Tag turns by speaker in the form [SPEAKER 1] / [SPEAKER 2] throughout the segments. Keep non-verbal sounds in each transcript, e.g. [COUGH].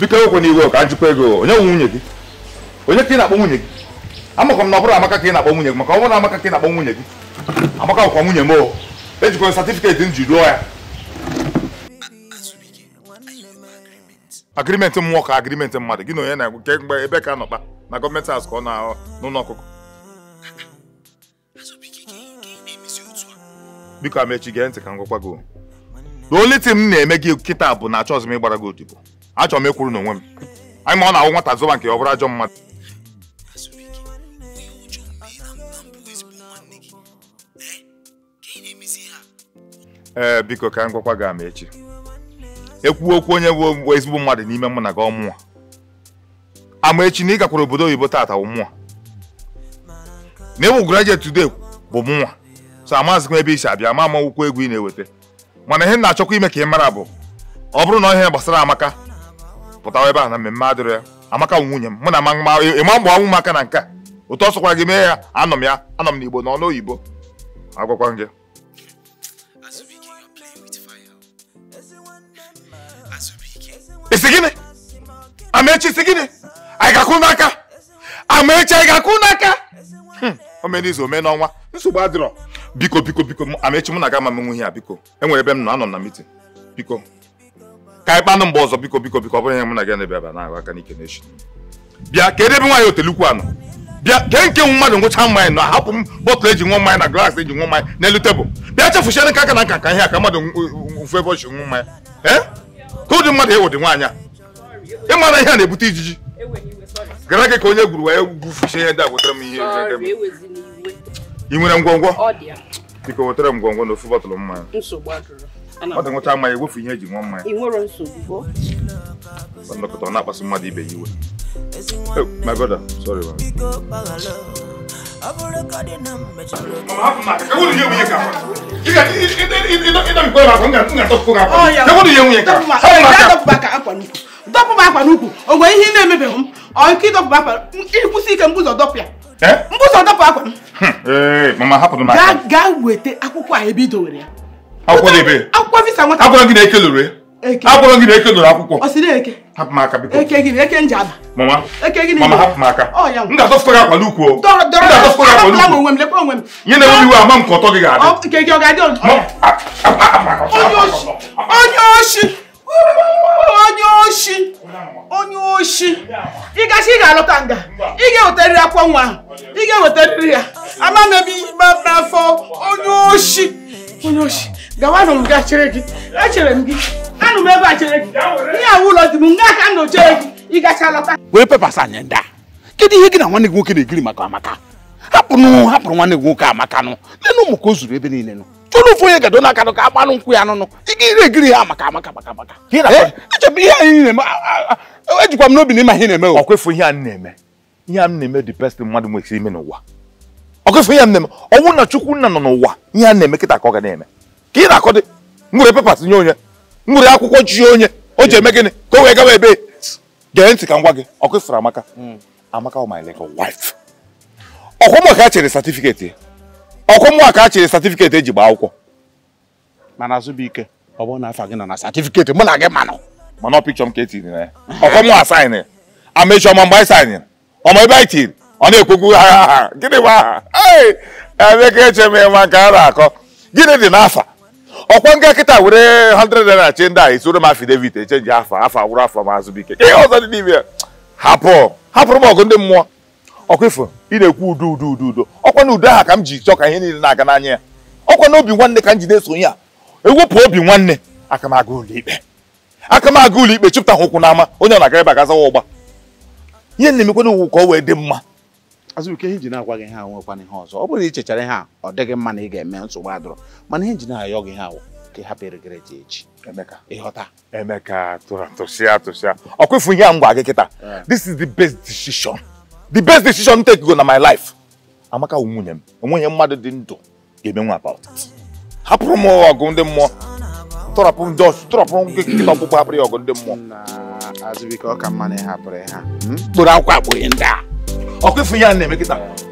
[SPEAKER 1] biko ekwe n'iwe ka njikwa ego onye nwe nwunye gị onye ka ị na-akpọ nwunye gị amakwa na ọ bụrụ amaka ka ị na-akpọ nwunye gị maka ọ na amaka ka ị na-akpọ nwunye gị amaka nwunye m o ejikwa satifiketi m ji rụọ ya agrimenti mmụọ ka mmadụ gị na na-egwu ebe nọkpa na gọọmenti azụ na n'ụlọ biko amechi gee ntị ka m gwakwa gị the only thing m na-eme gị kịta bụ na achọghịzị m ịgbara gị odibo Achọ m ịkwụrụ n'onwe m anyị ma ọ na-awụ nwata zụba nke ọ bụrụ ajọ mmadụ ee eh, biko ka m gwakwa gị ama echi ekwuo okwu onye wụ ezigbo mmadụ n'ime mụ na gị ọmụwa ama echi na ị gakwara obodo oyibo tata wụ mụnwa na e ịwụ graduate today bụ mụnwa so amazịkwa ebe i si abịa ma manwụkwa egwu ị na-eweta mana ihe na-achọkwa ime ka ị mara bụ ọ bụrụ na ihe gbasara amaka pụtawa ebe a na mmemme adịrọ ya amaka nwunye m mụ na ịma mgbe ọnwụ m aka na nke a otu ọ sọkwara gị mee ya anọ m ya anọ m n'igbo na ọnụ oyibo agwakwa gị isi gịnị amaechi isi gịnị anyị ga n'aka amaechi anyị ga akụ n'aka hmm. omenizu ome ọnwa nsogbu adịrọ biko biko biko amechi mụ na gị ama m ihe a biko enwere ebe m nọ anọ na mitin biko ka anyị mgbe ọzọ biko biko biko ọ bụrụ ihe mụ na gị na-ebe aba na-ahụ aka n'ike n'echi bịa ka edebe nwaanyị otelukwu anọ bịa kee nke nwe mmadụ ngwụcha mmanya na hapụ m bọtụlụ eji nwa mmanya na glaasị eji nwa mmanya n'elu tebụl bịa chefuchara nke aka na nka ka ihe a ka mmadụ mfe ebe ọchi nwa mmanya ee ka ụdị mmadụ ewụdị nwaanyị a ịmara ihe a na-ebute ijiji gara gị ka onye gwuru wee gwufuchie ihe ndị a wetara m ihe I nwere ngwongwo biko wetara m ngwongwo na ofu mma mmanya ọ dị nwụcha mmanya egwefu ihe eji nwa mmanya nlekọta ọ na mmadụ ibe ya iwe my brother sorry man ọ ya nwunye
[SPEAKER 2] ka akwa nnukwu dọpụ m akwa n'ukwu o nwere ihe ị na-emebeghị m ọ ike ịdọpụ akwa ịkwụsị ike mbụzọ dọpụ ya mbụzọ dọpụ akwa m gaa weta akwụkwọ a ebe i dowere ya
[SPEAKER 1] akwụkwọ
[SPEAKER 2] visa nwata agwara gị na eke lụrụ agwara gị na eke lụrụ akwụkwọ ọ sịrị eke
[SPEAKER 1] hapụ m aka biko eke
[SPEAKER 2] gị eke nji ada mama eke gị mama hapụ m aka m ga-adọfụta gị akwa
[SPEAKER 1] n'ukwu ga-adọfụta gị akwa
[SPEAKER 2] n'ukwu
[SPEAKER 1] nye na enweghị iwe ama m ka ọtọ gị
[SPEAKER 2] ga-adị onye oshi onye oshi onye oshi ịgasị ị ga-alọta nga ị ga-ewetarịrị akwụkwọ nwa ahụ ị ga-ewetarịrị ya ama m ebe ibe n'afọ onye oshi onye oshi gawanụ m ga chere gị echere m gị anụ m ebe a chere gị ihe awụ ụlọ dị m nga aka m nọ chere gị lọta wee pepas anya ndị a kedu ihe gị na nwanne gị nwoke na-egiri maka amaka hapụnụ hapụrụ nwanne gị nwoke amakanụ na
[SPEAKER 1] ụmụ ka o zuru ebe niile nụ ụfọdụ onye gado n'akanụ ka agbanụ nkwụ ya nụnụ egiri ha maka
[SPEAKER 2] amaka maka maka
[SPEAKER 1] echebe ihe anyị na-eme ejikwa m n'obi na ịma ihe na-eme ihe a na-eme ihe a na-eme dị best mmadụ ime n'ụwa ihe na-eme ọ na chukwu nna nọ n'ụwa ihe a na-eme kịta ka ga na-eme ka na-akọ dị nwere nye onye nwere akwụkwọ chi onye o ji eme gịnị ka o wee gawa ebe gee ntị ka gwa gị ọ amaka hmm. oh ọkwụmụ ka chere satifiketi ọkwụmụ ka a chere satifiketi eji gbaa akwụkwọ mana Azụbụike ọ bụrụ na afa gị nọ na satifiketi mụ na gị manụ mana ọ pikchọ m ka e na ya [LAUGHS] ọkwụmụ asaịnị
[SPEAKER 3] amechi ọma mgbe anyị saịnị
[SPEAKER 1] ọma ebe anyị tiri ọ na ha aha gịnị bụ aha ka eche m ịma nke a na-akọ gịnị dị n'afa ọkwa nga kịta were 100 naira chee ndị a esoro m afidevit echenji afa afa gwụrụ afọ ma Azụbụike ihe ọzọ dị n'ime ya hapụ hapụrụ m ọgụ ndị mmụọ ọkwa ifo ị na-ekwu udo udo udo udo ọkwa na udo aha ka m ji chọọ ka ihe niile na-aga n'anya ya ọkwa na obi nwanne ka m jide sonye a ewepụ obi nwanne aka m aga ụlọ ikpe aka ụlọ ikpe chụpụta ha ụkwụ n'ama onye na-aga ebe agazawa ụgba ihe na-emekwana uwu ka ọ wee dị mma
[SPEAKER 2] azụbuike ihe njin agwa gị ha nwekwana ihe ọzọ ọ bụrụ na ị chechara ihe a ọ dịghị mma na ị
[SPEAKER 1] ga-eme nsogbu adọrọ mana ihe njin ayọ gị ha ka ị hapụ eregereje echi ịghọta emeka tụrụ atụsịa atụsịa ọ ihe a m gị kịta this is the best decision the best decision m take go na my life amaka wu nwunye m onwenye mmadụ dị ndụ ga-eme nwa about hapụrụ m ọgụ ndị mmụọ tọrọpụ ọgụ ndị mmụọ azụbike ọ ka mma na ịhapụrụ hmm? akwụkwọ akpụghị ndị a ọkụ ifu ihe a na-eme kịta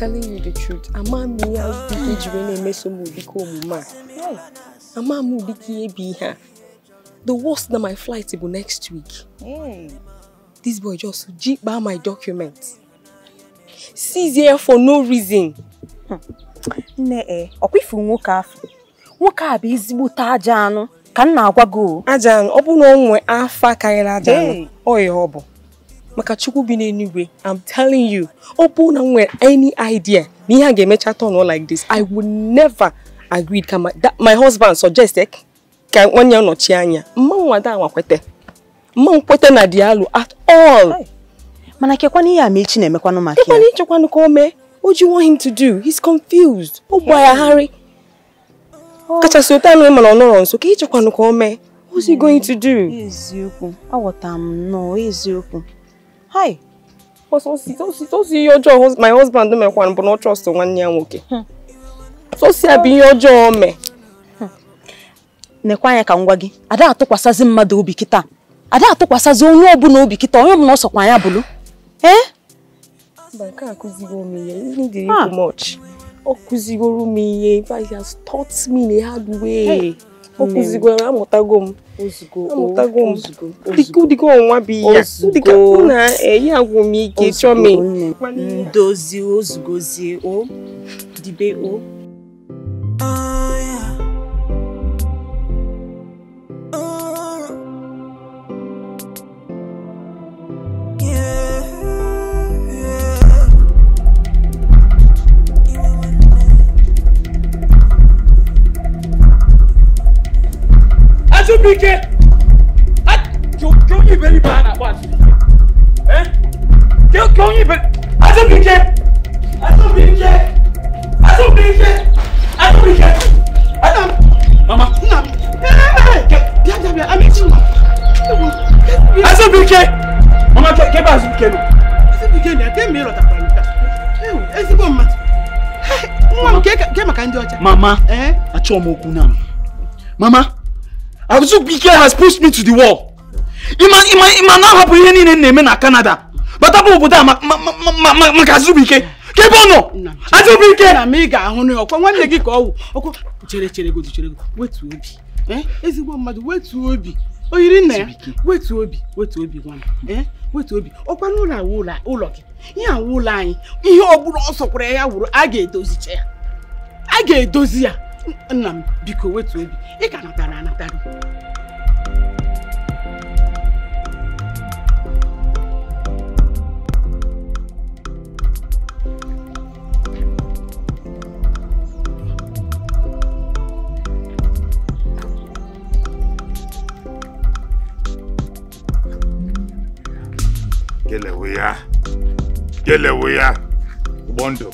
[SPEAKER 4] telling you the truth. a ya ike jiri na-emeso m ụdị ka omume
[SPEAKER 5] a.
[SPEAKER 4] Amamu ụdị ka ihe bụ ihe a. The worst na my flight bụ next week. Hmm. This boy just jikpa my documents. Seize here for no reason. Hmm. Nne e, ọkwa ifu nwoke afọ. Nwoke a bụ ezigbote aja anụ ka m na-agwa gị o. Aja anụ, ọ bụ na o nwee afa karịrị aja anụ, ọ ya ọ bụ. maka chukwu bi n'eluigwe i'm telling you ọ bụ na nwere any idea na ihe a ga-emecha turn like this i would never agree ka my husband suggest eh, ka nwanne ya nọchie anya mma nwada anwa kwete mma nkwete na dialo at all mana kekwana ihe amechi echi na-emekwanụ maka ya ịchekwanụ ka o mee o do you want him to do he's confused ọ gbaghagharị oh. kachasị ụta anụ mana ọ nọrọ nso ka ịchekwanụ ka o mee what's he hmm. going to do eziokwu aghọtara m nnọọ eziokwu hi osi ihe ọjọọ my husband mekwara bụ na ọ trọst nwanne ya nwoke sosi ya bụ ihe ọjọọ o mee anya ka ngwa gị ada atụkwasazị mmadụ obi kita, ada atụkwasazị onye na obi kịta onye ọbụla ọsọkwa anya bụlụ ee ọ kụzigoro m ihe it has taught me in a hard way ozugbo amụtago m amụtago m ụdịka ọnwa bụ ya ụdịka na eyi agwụ m ike chọọ m e. dozi ozugbozie o dibe o oh,
[SPEAKER 2] ah, Abike! Kí ó yìnbọn ní bàánà wá sí? Kí ó yìnbọn? Adébíkẹ́! Adébíkẹ́! Adébíkẹ́! Adébíkẹ́! Adam! Mama! Nna! Bịa bịa bịa, Amechi nwa! Adébíkẹ́!
[SPEAKER 3] Mama kẹ́ bá Adébíkẹ́
[SPEAKER 2] nọ. Adébíkẹ́ na ebe mmiri ọtakwara nke a. Ezigbo mmadụ. Nwa m kee maka ndị ọcha. Mama! Achọọ m okwu na m. Mama! Azu Bike has pushed me to the wall.
[SPEAKER 3] ma ima ima now ihe
[SPEAKER 2] niile na-eme na kanada But abụ obodo a maka Azu Bike. Ka ọ nọ? Na m ị ga-ahụ na ọkwa nwanne gị ka ọwụ. Ọkwa chere chere godu chere godu. Wetu obi. Eh? Ezigbo mmadụ wetu obi. O yiri ya. Wetu obi. Wetu obi Eh? Wetu obi. Ọkwa n'ụlọ awụ ụlọ ụlọ gị. awụ ụlọ anyị. Ihe ọ bụla ọ ya wụrụ a ga ya. A ga-edozi ya. nna m biko wetu obi ị ka natara anatara
[SPEAKER 1] kelewe ya kelewe ya ụgbọ ndụ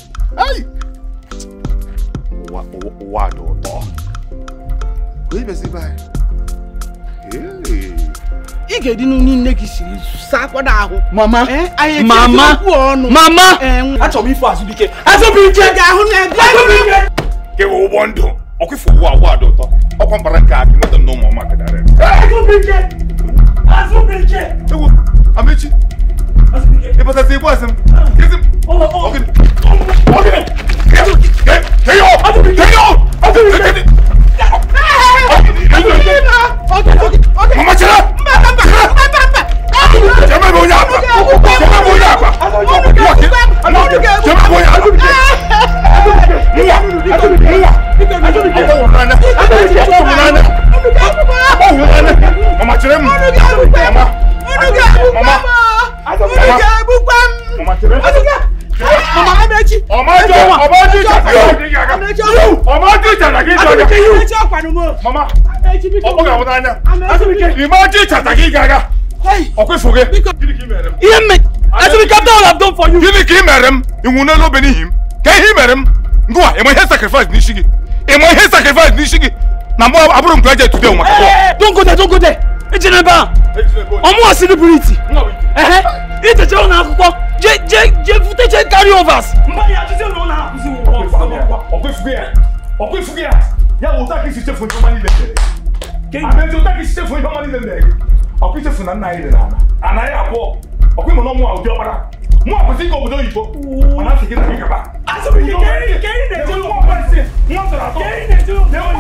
[SPEAKER 1] wà lóòótọ́. Oyi bɛsi ba ye. I
[SPEAKER 2] ga-edi n'unu nne gị siri sakwada ahụ. Mama, mama, mama,
[SPEAKER 1] achọrọ m ife azụ dike. Azụ Ga ahụ na ebe. Azụ bụ ụgbọ ndụ, ọkwa ifo ụwa ụwa dị ụtọ. Ọkwa mbara nke akị mmadụ na ọma kadara. Azụ bụ Ewu, Amechi. Ibo tẹ ti ibú ẹsìn kìsì. Ọkì ọkì
[SPEAKER 3] kẹyọ kẹyọ kẹyọ.
[SPEAKER 1] Mama cira.
[SPEAKER 3] Jẹ́mẹ̀ bò yà àgbà.
[SPEAKER 2] Jẹ́mẹ̀ bò yà àgbà. Jẹ́mẹ̀ bò yà àgbà. Nwa nwa.
[SPEAKER 1] Ọwụrụ n'anya. Ọwụrụ n'anya. Mama cira m. Mama. Mama ọmọdé bukwa ọmọdé mama amechi ọmọdé ọmọdé jàdàgé
[SPEAKER 5] ọmọdé jàdàgé jọjà amechi
[SPEAKER 2] ọkpanumo mama ọkpọga ọmọdé anya ọmọdé jàdàgé
[SPEAKER 1] gaga ọkọ ìfòge ihe mme asịrị kapta ọla dom for you gịnị ka ị mere m ịnwụnela obe n'ihi m ka ihe ị mere m ngwa ịma ihe sacrifice n'isi gị ịma ihe sacrifice n'isi gị na mgbe abụrụ m graduate today maka don't go there don't go there ejinebe a
[SPEAKER 2] ọmụwa siri buru iti ite ce una akwụkwọ je je je vuteche carry overs mmadụ ya jụzie na ọ na-akụzi ọkwa ifugo ya ya
[SPEAKER 1] bụ ụta ka isi chefu ihe ọma niile mere abezi ụta ka isi chefu ihe ọma niile mere gị ọkwa ichefu na nna anyị dị n'ala anaghị abụọ ọkwa ịmụ na ọmụ a ụdị ọkpara mụ akwụsị ịga obodo oyibo mana asị gị na gị gaba asịrị gị keri na-eje ụmụ ọkpa isi nwa tọrọ atọ na-enwe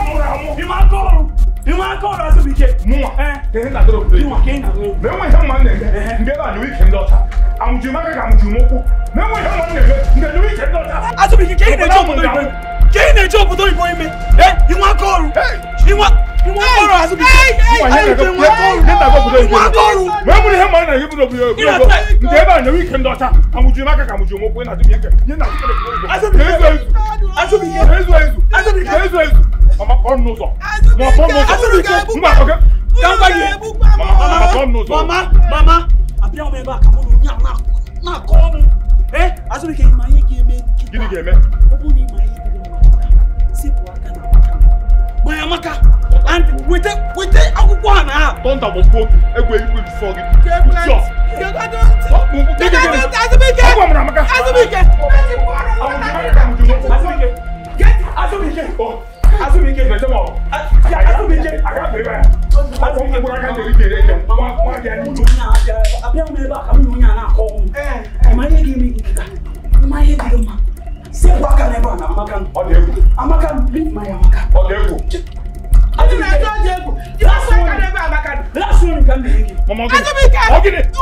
[SPEAKER 1] ihe mụrụ amụ nwa aka ọrụ azụ bụ ike mụnwa menwe ihe mma na-eme ndị ebe a nụrụ ike ndị ọcha amụjiri maka ka amụjiri m ụkwụ menwe ihe mma na-eme ndị nụrụ ike ndị ọcha azụ bụ ike ka ị na-eji obodo igbo ime ka ị na-eji obodo igbo ime inwe aka ọrụ ìwọ kọrọ àti bìtẹ ìwà yẹn nàgbẹ kúlẹ ní nàgbẹ kúlẹ ìwé wẹ́n mu ni hẹ́n mọ̀ ẹ́ nàgbẹ kúlẹ ìwé wẹ́n mu ntẹ́ bá nàwí kẹ́ ndọ́ta àmùjù má kàkà àmùjù mọ̀ kúlẹ̀ nàdúmí ẹ̀kẹ́ yẹn nàgbẹ kúlẹ ìwé asọ́bi yẹn asọ́bi yẹn asọ́bi yẹn asọ́bi yẹn mama kọ́ nù sọ mama kọ́ nù sọ asọ́bi yẹn mbà kọ́kẹ́ dáńgbà yẹn mama kọ́ nù
[SPEAKER 2] sọ mama mama
[SPEAKER 5] àbí àwọn ẹ̀bá àkàmúlò ní àwọn náà kọ́ ọ́ mu
[SPEAKER 2] ẹ asọ́bi yẹn ìmọ̀ ayé gé mẹ́ gidi gé mẹ́ ó bú ní ìmọ̀ ayé Gbanyamaka and wete wete akwụkwọ a na ha. Tọ́ntà bụ mkpu okwu egwu eluigwe bifọ gị.
[SPEAKER 5] Jọ. Azụbike.
[SPEAKER 2] Azụbike. Azụbike. Azụbike. Azụbike. Azụbike. Azụbike. asọmpi bọra ka joli jere jẹ wa wa jẹ ni. a bẹ n bẹ ba a bẹ n'o ɲa n'a kọ. ẹ ẹ ma ye k'i mi k'i ta ma ye k'i ma si Amaka na ebe a na Amaka ọ dị egwu Amaka leave my Amaka ọ dị egwu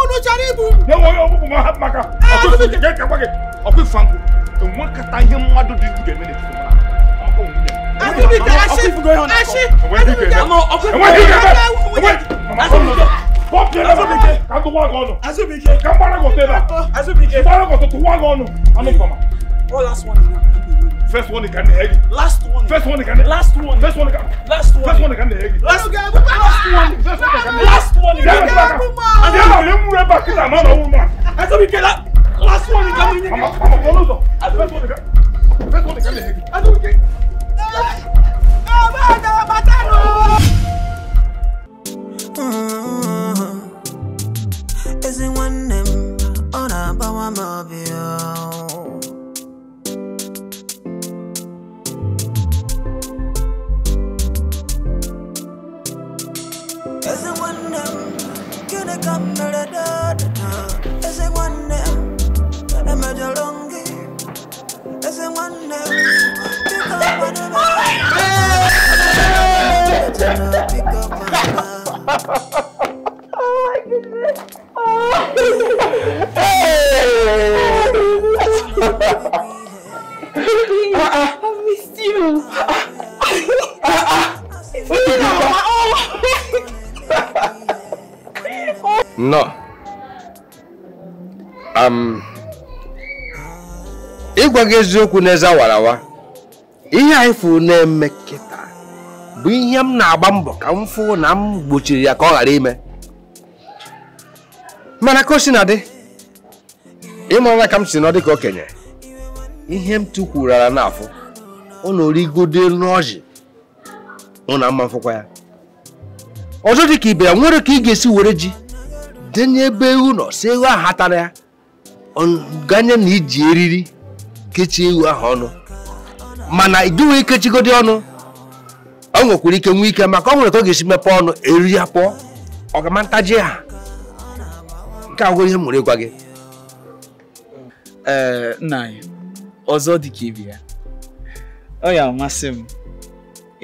[SPEAKER 1] unu chọrọ ibu ọkụfanku enwekata ihe mmadụ dị ga-eme n'etiti Azubike, ka mgbara gị ọtụ ebe a, mgbara gị ọtụtụ, tụwa gị ọnụ, anụ mfama.
[SPEAKER 2] What last one? First one can egg. Last one. First one can. Last one. First one can. Last one. First one can egg. Last one. First one can. Last one. one. then I Last one. Last one. Last one. Last one. Last one. Last one. Last one Last one. Last one. Last one. Last one Last one. Last one Last one. Last one. Last one. Last one Last
[SPEAKER 3] Last Last Last Last Last Last Last Last Last Last Last Last Last Last one. one. one. one. one. one. one. one. one. one. one. one. one. one. one. one. them on a bow and come to a Oh my goodness. Oh. I missed you. Oh.
[SPEAKER 6] No. Um, ịgwa gị eziokwu n'eze ihe anyị fụrụ na-eme kịta bụ ihe m na-agba mbọ ka m na m gbochiri ya ka ọ ghara ime mana ka o si na dị ka m si nọ dị ka okenye ihe m tụkwurara n'afọ ọ na-origodo n'ọjị ọ na mma mfụkwa ya ọzọ dị ka ibe ya nwere ka ị ga-esi were ji nye n'ebe ewu nọ si ewu ahụ atara ya ganye na iji eriri kechie ewu ahụ ọnụ mana iduwe ikechigodi ọnụ ọ nwekwara ike nwee ike maka ọ nwere ka ọ ga-esi mepee ọnụ eriri ya pụọ ha nke agwụrụ ihe mụrụ ịgwa gị ee
[SPEAKER 2] anyị ọzọ dị ka ya ọ ya amasị m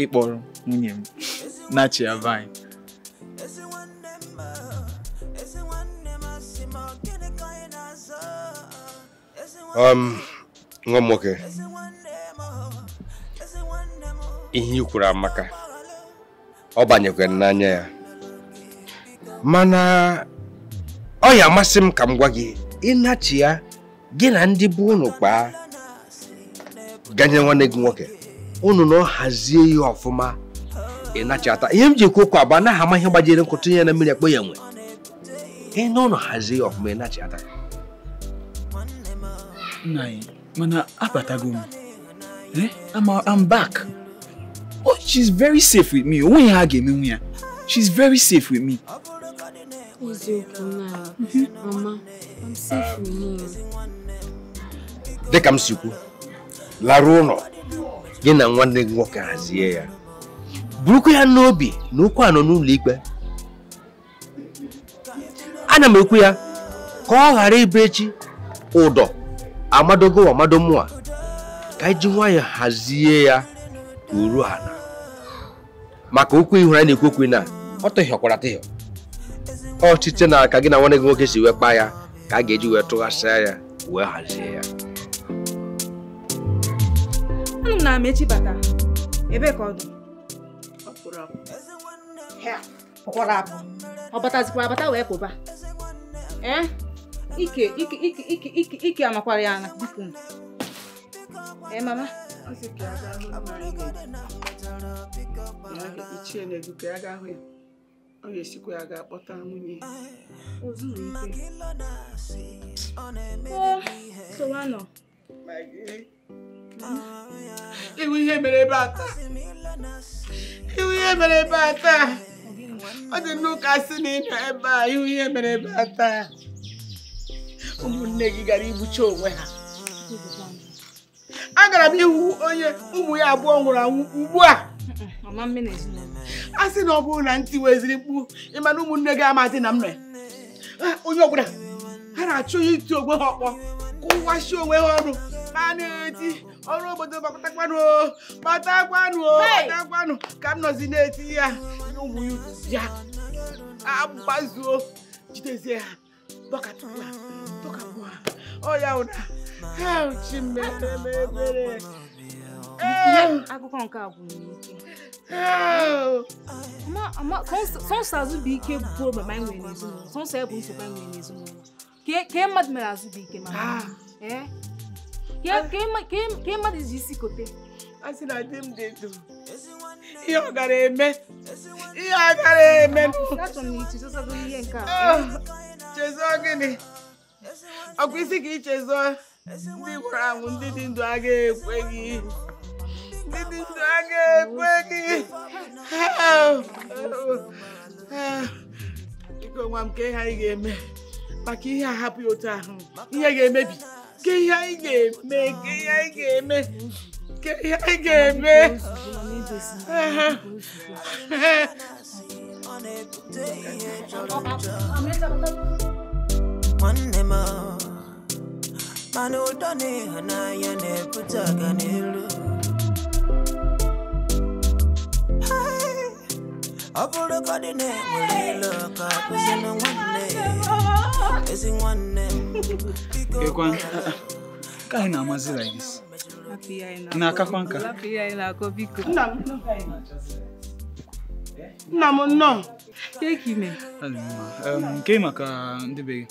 [SPEAKER 2] ịkpọrọ nwunye m na chi ya
[SPEAKER 6] Um, nwa m nwoke ihe i kwuru amaka ọ banyekwara n'anya ya mana ọ ya amasị m ka m gwa gị ịnachi ya gị na ndị bụ unu kpaa ganye nwanne gị nwoke unu na ọ hazie ihe ọfụma ịnachata ihe m ji kwuo okwu na anaghị ama ihe gbajere nkụ ya na mmiri akpọ ya nwe ị na hazie ọfụma ịnachata
[SPEAKER 2] nna anyị mana abatago eh, m I'm back oh she's very safe with me onweghị ha ga-emenwu ya she's very safe with me
[SPEAKER 6] dịka m si kwu larụ ụlọ gị na nwanne gị nwoke hazie ya burukwa ya n'obi na okwu anọ n'ụlọ ikpe ana m ekwu ya ka ọ ghara ịbụ echi ụdọ amadogo amado mụ a ka anyị ji nwayọọ hazie ya uru o na ala maka okwu ihu anyị na-ekwu okwu na ọ tụhịọkwara atụhịọ ọ na aka gị na nwanne gị nwoke si wee kpaa ya ka a ga-eji wee tụghasịa ya wee hazie ya
[SPEAKER 4] na ebe ka ọ dị abata wee pụba ee ike ike ike ike ike ike amakwara ya na biko ee mama
[SPEAKER 2] ichie na-egwu ka ya ga ahụ ya ọ ga-esikwa ya ga-akpọta nwunye sowanọ iwu ihe mere iwu ihe mere ebe a taa ọ dị nnukwu asị na ịnọ ebe a iwu ihe mere ebe a taa ụmụnne gị gara igbucha onwe ha agara m ihu onye ụmụ ya abụọ nwụrụ anwụ ugbu a a sị na ọ bụrụ na ntị weziri mkpu ịma na ụmụnne gị amadị na mma onye ọbụla ha na-achọ ya iti onwe ha ọkpọ kụwasị onwe ha ọnụ ma na-eti ọrụ obodo gbakọtakwanụ gbatakwanụ gbatakwanụ ka m nọzi na-eti ya ụmụ ya agbazuo jidezie ha ha. ọya ụda
[SPEAKER 4] chi mere mere eh. akụkọ nke a gwụrụ n'ike sọnsọ azụbụike bụrụ mama anyị nwere n'ezinụlọ sọnsọ ya bụ nsogbu anyị nwere n'ezinụlọ kee mmadụ mere azụbụike mama ah. eh? kee mmadụ ji isi kote a sị na di m dị ndụ ihe
[SPEAKER 2] ọ gara eme
[SPEAKER 4] ihe ọ gara eme ah.
[SPEAKER 2] chezo gịnị ọkwa isi ka ichezọ ndị gwara anwụ ndị dị ndụ aga ekwe ndị dị ndụ aga ekwe gị biko nwa m ka ihe anyị ga-eme maka ihe hapụ otu ahụ ihe ga-emebi ihe anyị ga-eme ka ihe anyị ga-eme ka
[SPEAKER 3] ihe anyị ga-eme ha ha ha ha ha ha nwanne m mana ụtọ na ịhụnanya na-ebute ọganihu ọ bụrụgodị na enwere ilo ka kụzina nwanne ezi nwanne m
[SPEAKER 2] ka na-amazi like this na-akakwa nka nna m nnọọ e nke maka ndị be gị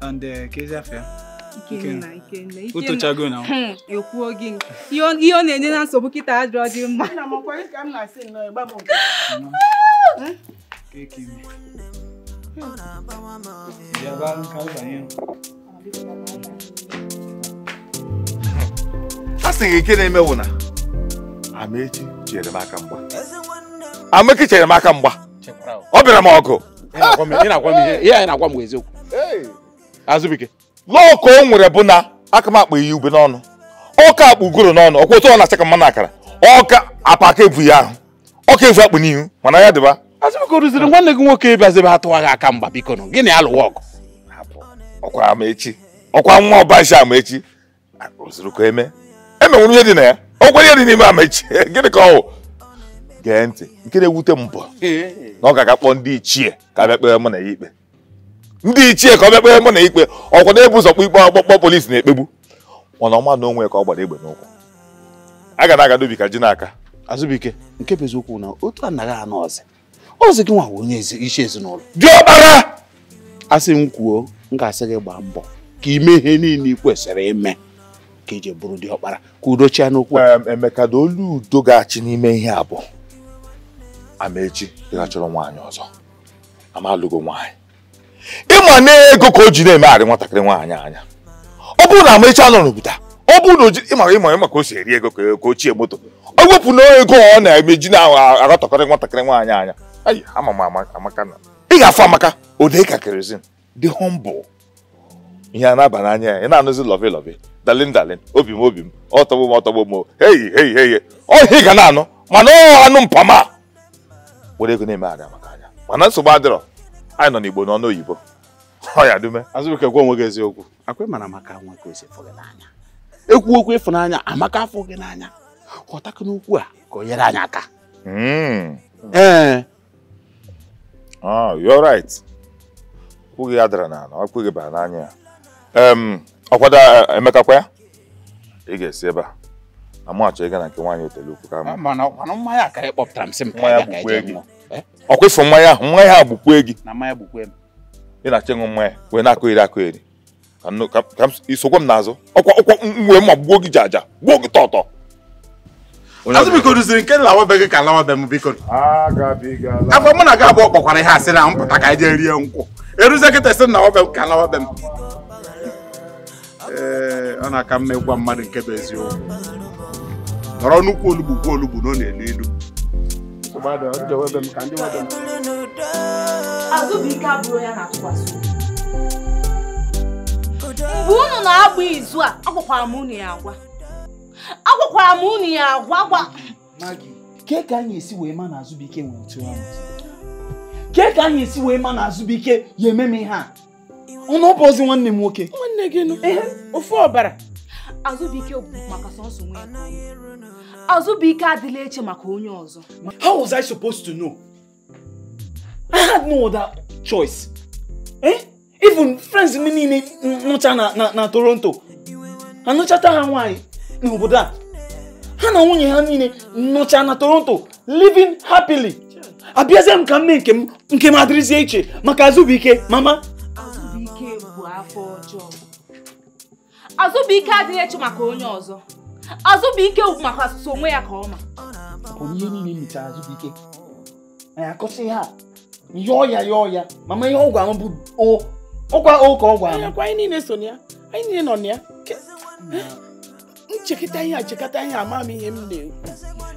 [SPEAKER 2] and kezi afọ ya ụtụchago na
[SPEAKER 4] hmm, ekwuo gị ihe ọ na-enye na nsogbu kịta ajọ dị mma
[SPEAKER 2] a
[SPEAKER 1] e sị gị nke na-eme Amaechi chere m aka mgba Amaechi chere m aka mgba ọ bịara m ọgụ azụbike lọọ o nwere bụ na aka m akpa ube n'ọnụ ọka akpụ ugoro n'ọnụ ọkwa otu ọ na-achaka mmanụ akara ọka apa aka ebu ya ahụ ọka evu akpụ n'ihu mana ya dịba azụbike rụziri nwanne gị nwoke aka mgba biko nụ gịnị alụwa ọgụ ọkwa ọkwa nwa ọbaji Amaechi rụziri ka eme emenwere ihe dị na ya okwe ihe dị n'ime amaechi [LAUGHS] gịnị ka ọwụ. gee ntị nke na-ewute m bụ na ọ ga-aga ndị ichie ka bịa kpere mụ na ya ikpe ndị ichie ka ọ bịa kpere mụ na ya ikpe ọkwa na-ebu ụzọ kpọ ikpe ọkpọkpọ polisi na-ekpegbu mana ọma na onwe ka ọ gbara egbe n'ụkwụ a ga na-aga dobi ka ji n'aka azụbike nke bụ eziokwu na otu anaghị anọ ọzọ ọzọ gị nwa onye isi ezinụlọ
[SPEAKER 2] dị diọkpara asị m kwuo m ga-asị gị gbaa mbọ ka ime ihe niile ị
[SPEAKER 1] kwesịrị ime ka eji bụrụ ndị ọkpara ka udochia n'okwu emeka na olu udo ga-achị n'ime ihe a bụ amaechi chọrọ nwaanyị ọzọ amalụgo nwaanyị ịma n'ego ka o ji na-emegharị nwatakịrị nwaanyị anya ọ bụrụ na amaechi anọ n'obodo ọ bụrụ na ịmara ịmara maka o si eri ego ka ochie moto o wepụ na ego ọ na-emeji na aghọtakọrị nwatakịrị nwaanyị anya ama m amaka na ị ga-afụ amaka ode ka dị humble ihe a na-aba n'anya ya ị na-anụzi lọvi lọvi dalin dalin obi m obi m ọtọgbo m ọtọgbo m heyi heyi heyi ọhị ga na-anụ mana ọ anụ mpama were ego na-eme ada maka anya mana nsogbu adịrọ anyị nọ n'igbo n'ọnụ oyibo ọya dume azụbụke gwa onwe gị eziokwu akwe mara maka nwa ka esi fụghị n'anya
[SPEAKER 2] ekwu okwu ịfụnanya amaka afọ gị n'anya ghọtakụ n'okwu a ka
[SPEAKER 1] o nyere anyị aka hmm. ee oh, you're right okwu gị ya dara n'ala okwu bara n'anya ya ọkwado eh, eh, emekakwa ya ị ga-esi ebe a amachọ ịga na nke nwaanyị otelukwu ka ah, ọkwa eh? ịfụ mmanya ahụ mmanya gị ị na-achọ ịṅụ mmanya wee na-akụ iri ka m ọkwa ọkwa gbuo gị ji aja gbuo gị tọtọ azụ biko nke gị ka m biko afọ mụ na gị abụọ kpọkwara ihe na mpụta ka anyị jee rie nkwụ eruzie kịta si na be m ka m ee eh, ọ na-aka mma ịgwa mmadụ nke bụ eziokwu nọrọ nnukwu olugbu kwuo olugbu na
[SPEAKER 2] ọ na-elu ilu mgbe
[SPEAKER 4] unu na-agba izu a agwakwara m unu ya agwa agwakwara m unu ya agwa gwa
[SPEAKER 2] ke ka anyị esi wee ma na Azụbụike nwere otu ahụ
[SPEAKER 4] ke ka anyị esi wee ma
[SPEAKER 2] na Azụbụike ya eme m ihe a ụnụ ọ bụ ozi nwanne m nwoke nwanne gị nụ ofu ọbara
[SPEAKER 4] azụbụike bụ maka sọsọ nwe ike adịla eche maka onye ọzọ
[SPEAKER 2] how was i supposed to know
[SPEAKER 4] i had no other
[SPEAKER 2] choice eh even friends m niile nụcha na Toronto, toronto anụchata ha nwaanyị n'obodo a ha na nwunye ha niile nụcha na toronto living happily abịazie m ka m mee nke m nke m adịrịzie iche maka azụbụike mama
[SPEAKER 4] afọ ọjọọ azụbụike adịghị eche maka onye ọzọ azụbụike bụ maka asụsụ onwe ya ka ọma
[SPEAKER 2] ihe niile mechara azụbụike
[SPEAKER 4] anyị akọsị ha yọọ ya
[SPEAKER 7] yọọ ya
[SPEAKER 2] mama ihe ọgwụ ahụ bụ ọkwa o ka ọgwụ ahụ anyị niile so na ya anyị niile nọ na ya nchekọta ihe achekọta ihe ama m ihe m na-ekwu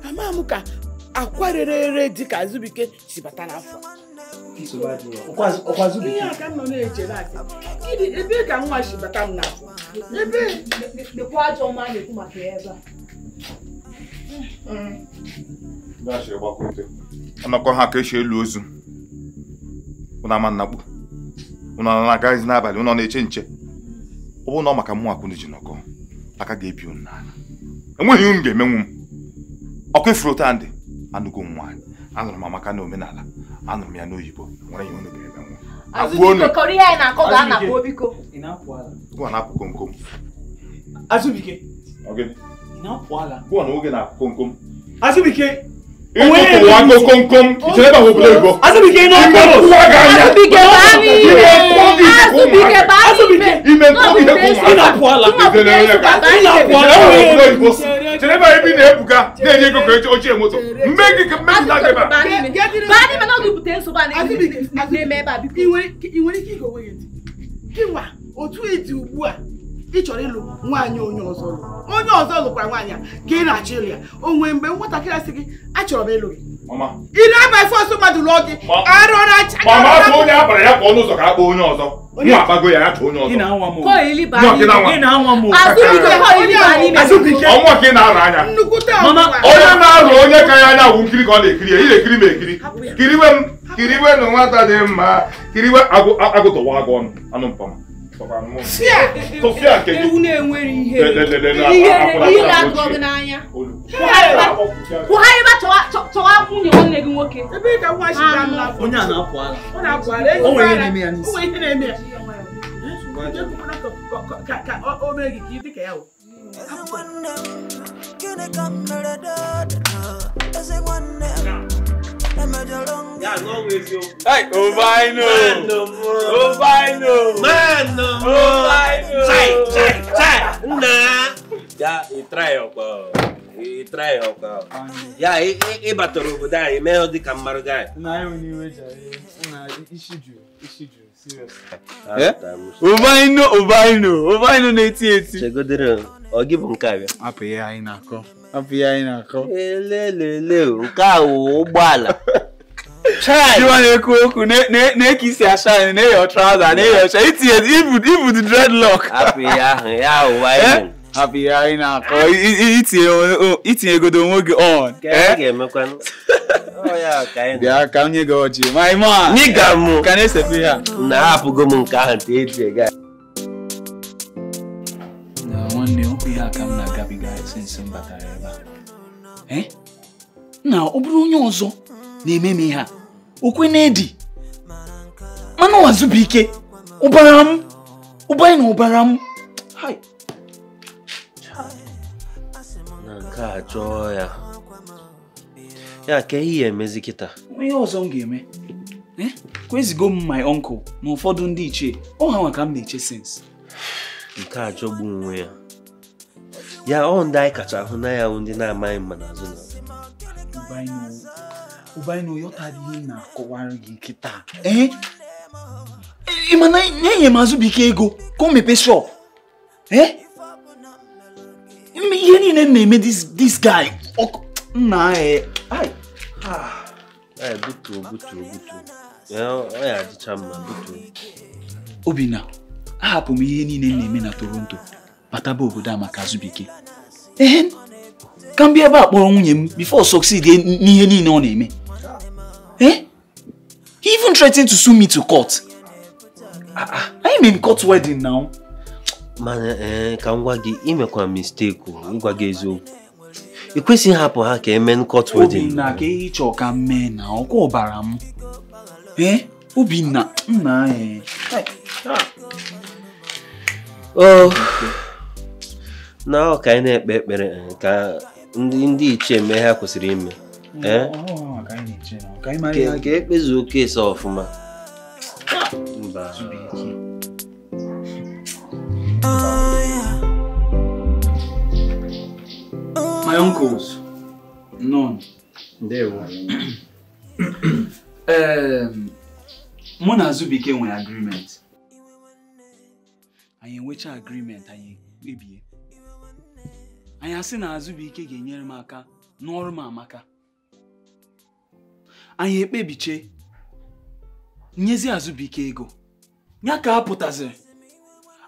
[SPEAKER 2] ama m ka akwa rere ere dị ka azụbụike si bata n'afọ
[SPEAKER 6] ihe a ka
[SPEAKER 2] m nọ na-echere asị
[SPEAKER 4] gịnị ebe ka nwa si bata m na ebe lekwa ajọ ọma na-ekwu maka ya ebe
[SPEAKER 1] a anakọ ha ka esi elu ozu ụnụ ama nnakpu ụnụ na-agaghịzi n'abalị ụnụ na-eche nche ọ bụ na ọ maka mụ akwụna ji nọkọ aka ga-ebi ụnụ n'ala enweghị m ga-emenwu m ọkụ ifuru tandị anụgo m nwaanyị anụrụ m amaka na omenala anụrụ m ya n'oyibo nwere ihe unu ga-eme nwa gụọ na-apụ komkom Azubike gụọ na oge na-apụ komkom Azubike Ìwọ́n kọ̀ọ̀kan ìṣẹ̀lẹ̀bà wo bolo ìbọ̀. Asubike iná kọ̀ọ̀rọ̀. Asubike bàmí ìwé. Asubike bàmí ìwé. Ìmẹ̀ nkọ́ mi yẹ kó mọ̀. Ìnà pọ̀ àlà. Ìnà pọ̀ àlà. Ìnà pọ̀ àlà. Ìnà pọ̀ àlà. chere ebe anyị na ebuga na-enye ego ka ochie moto mme gị ka mmebi na ebe
[SPEAKER 2] ị nwere ike igowe ya otu ịdị ugbu a ị chọrọ ịlụ nwaanyị onye ọzọ lụ onye nwaanyị ka ị na-achọ ịlụ ya o nwere mgbe nwatakịrị achọrọ ịlụ gị Mama. Ị na-abafe ọsọ mmadụ n'oge. Arọra chaka. Mama afọ onye
[SPEAKER 1] abara ya kwa ọnụ ụzọ ka akpọ onye ọzọ. Nwa akpago ya ya chọọ onye ọzọ. Ị na-anwa m.
[SPEAKER 2] Kọọ ili baa n'ime. Ị na-anwa
[SPEAKER 1] m. Azụbike kọọ ili baa n'ime. Azụbike. Ọnwa ka ị na-arụ anya. Nnukwu taa ọnwa. Onye na-arụ onye ka ya anya wụ nkiri ka ọ na-ekiri ya. Ị na-ekiri m ekiri. Kiriwe m. Kiriwe na nwata dị mma. Kiriwe agụtọwa agụ ọnụ. Anụ mpama. Sofia nke gị. Ewu na-enwere ihe. Ihe na-atụ ọgụ n'anya. Kwụgharịba
[SPEAKER 4] nwunye nwanne gị nwoke. Ebe ka nwa nna.
[SPEAKER 1] Onye a na-apụ ala.
[SPEAKER 5] Ọ na-apụ ala. O nwere ihe na-eme ya O
[SPEAKER 2] nwere ihe na-eme ya. Ka o mee gị
[SPEAKER 3] ka ị dị ka
[SPEAKER 5] That's always your. O
[SPEAKER 7] Ovaino!
[SPEAKER 5] Ovaino! Mano! Ovaino! Sai, sai, sai!
[SPEAKER 6] Nah! Já, e trai, ó, e trai, ó, Já, e, e, e batorugo, dá, e meio de camaro, dá.
[SPEAKER 5] Não, eu não vejo, não, Ishiju, Ishiju.
[SPEAKER 2] o Ovaino, Ovaino na eti eti.
[SPEAKER 6] Chegodero, ọ gị bụ O que bịa? Apụ ya aí na-akọ.
[SPEAKER 2] hapụ ya anyị na-akọ elelele nke a wụ ụgbọala na-ekwu okwu na-eke isi acha anyị na-eyo traza na-eyo ọcha itinye ibu dị dreadlock
[SPEAKER 5] hapụ ya ahụ ya
[SPEAKER 2] ụwa hapụ ya anyị na-akọ itinyegodo onwe gị on bịa
[SPEAKER 6] ka m nye gị ọjị my man ka na-esefe ya na ahapụgo m nke ahụ nte eji ega
[SPEAKER 2] nwanne okwu ya ka m na-agabiga sinsi m batara ebe Eh? na ọ bụrụ onye ọzọ na-eme m ihe a okwe na-edi mana wazụba ike ụbara m ụbara na ụbara m
[SPEAKER 6] na nke a chọọ ya ya ka ihe ya emezi kịta
[SPEAKER 2] ihe ọzọ m ga-eme eh? kwezigo m my
[SPEAKER 6] uncle na ụfọdụ ndị ichie ọ ha nwa ka m na-eche sens nke a chọgbu onwe ya ya ọ ndị anyị kacha ahụ na ya ndị na-amaghị mma n'azụ na
[SPEAKER 2] ụbainu yọtara ihe na-akọwara gị nkịta ị ma na enye m azụbike ego ka o mepee shop ihe niile m na-eme this guy nna
[SPEAKER 6] ya butuo butuo butuo ọ ya adịcha mma butuo
[SPEAKER 2] obinna ahapụ m ihe niile m na-eme na toronto bataba obodo a maka azụbike ka m bịa ebe a kpọrọ nwunye m before succeed n'ihe niile ọ na-eme eh he even threatened to sue me to court anyị ah, ah. mean court wedding now
[SPEAKER 6] mana eh, ka m gwa gị imekwa mistake ngwa gị eziokwu ị kwesịghị hapụ ha ka eme court wedding obinna
[SPEAKER 2] ka ihe chọọ ka m mee na ọkwa ọbara m eh? obinna nna anyị
[SPEAKER 3] eh.
[SPEAKER 6] Oh. na ọ ka anyị na-ekpe ekpere ka ndị ichie mee ha kwesịrị ime ka ekpezuo keesi ọfụma mba
[SPEAKER 2] my uncles none ndewo [CLEARS THROAT] mụ na Azubike nwere agreement anyị enwecha agreement anyị kpebie anyị asị na ike ga-enyere m aka n'ọrụ m amaka anyị ekpebiche nyezi Azụbụike ego ya ka a pụtaziri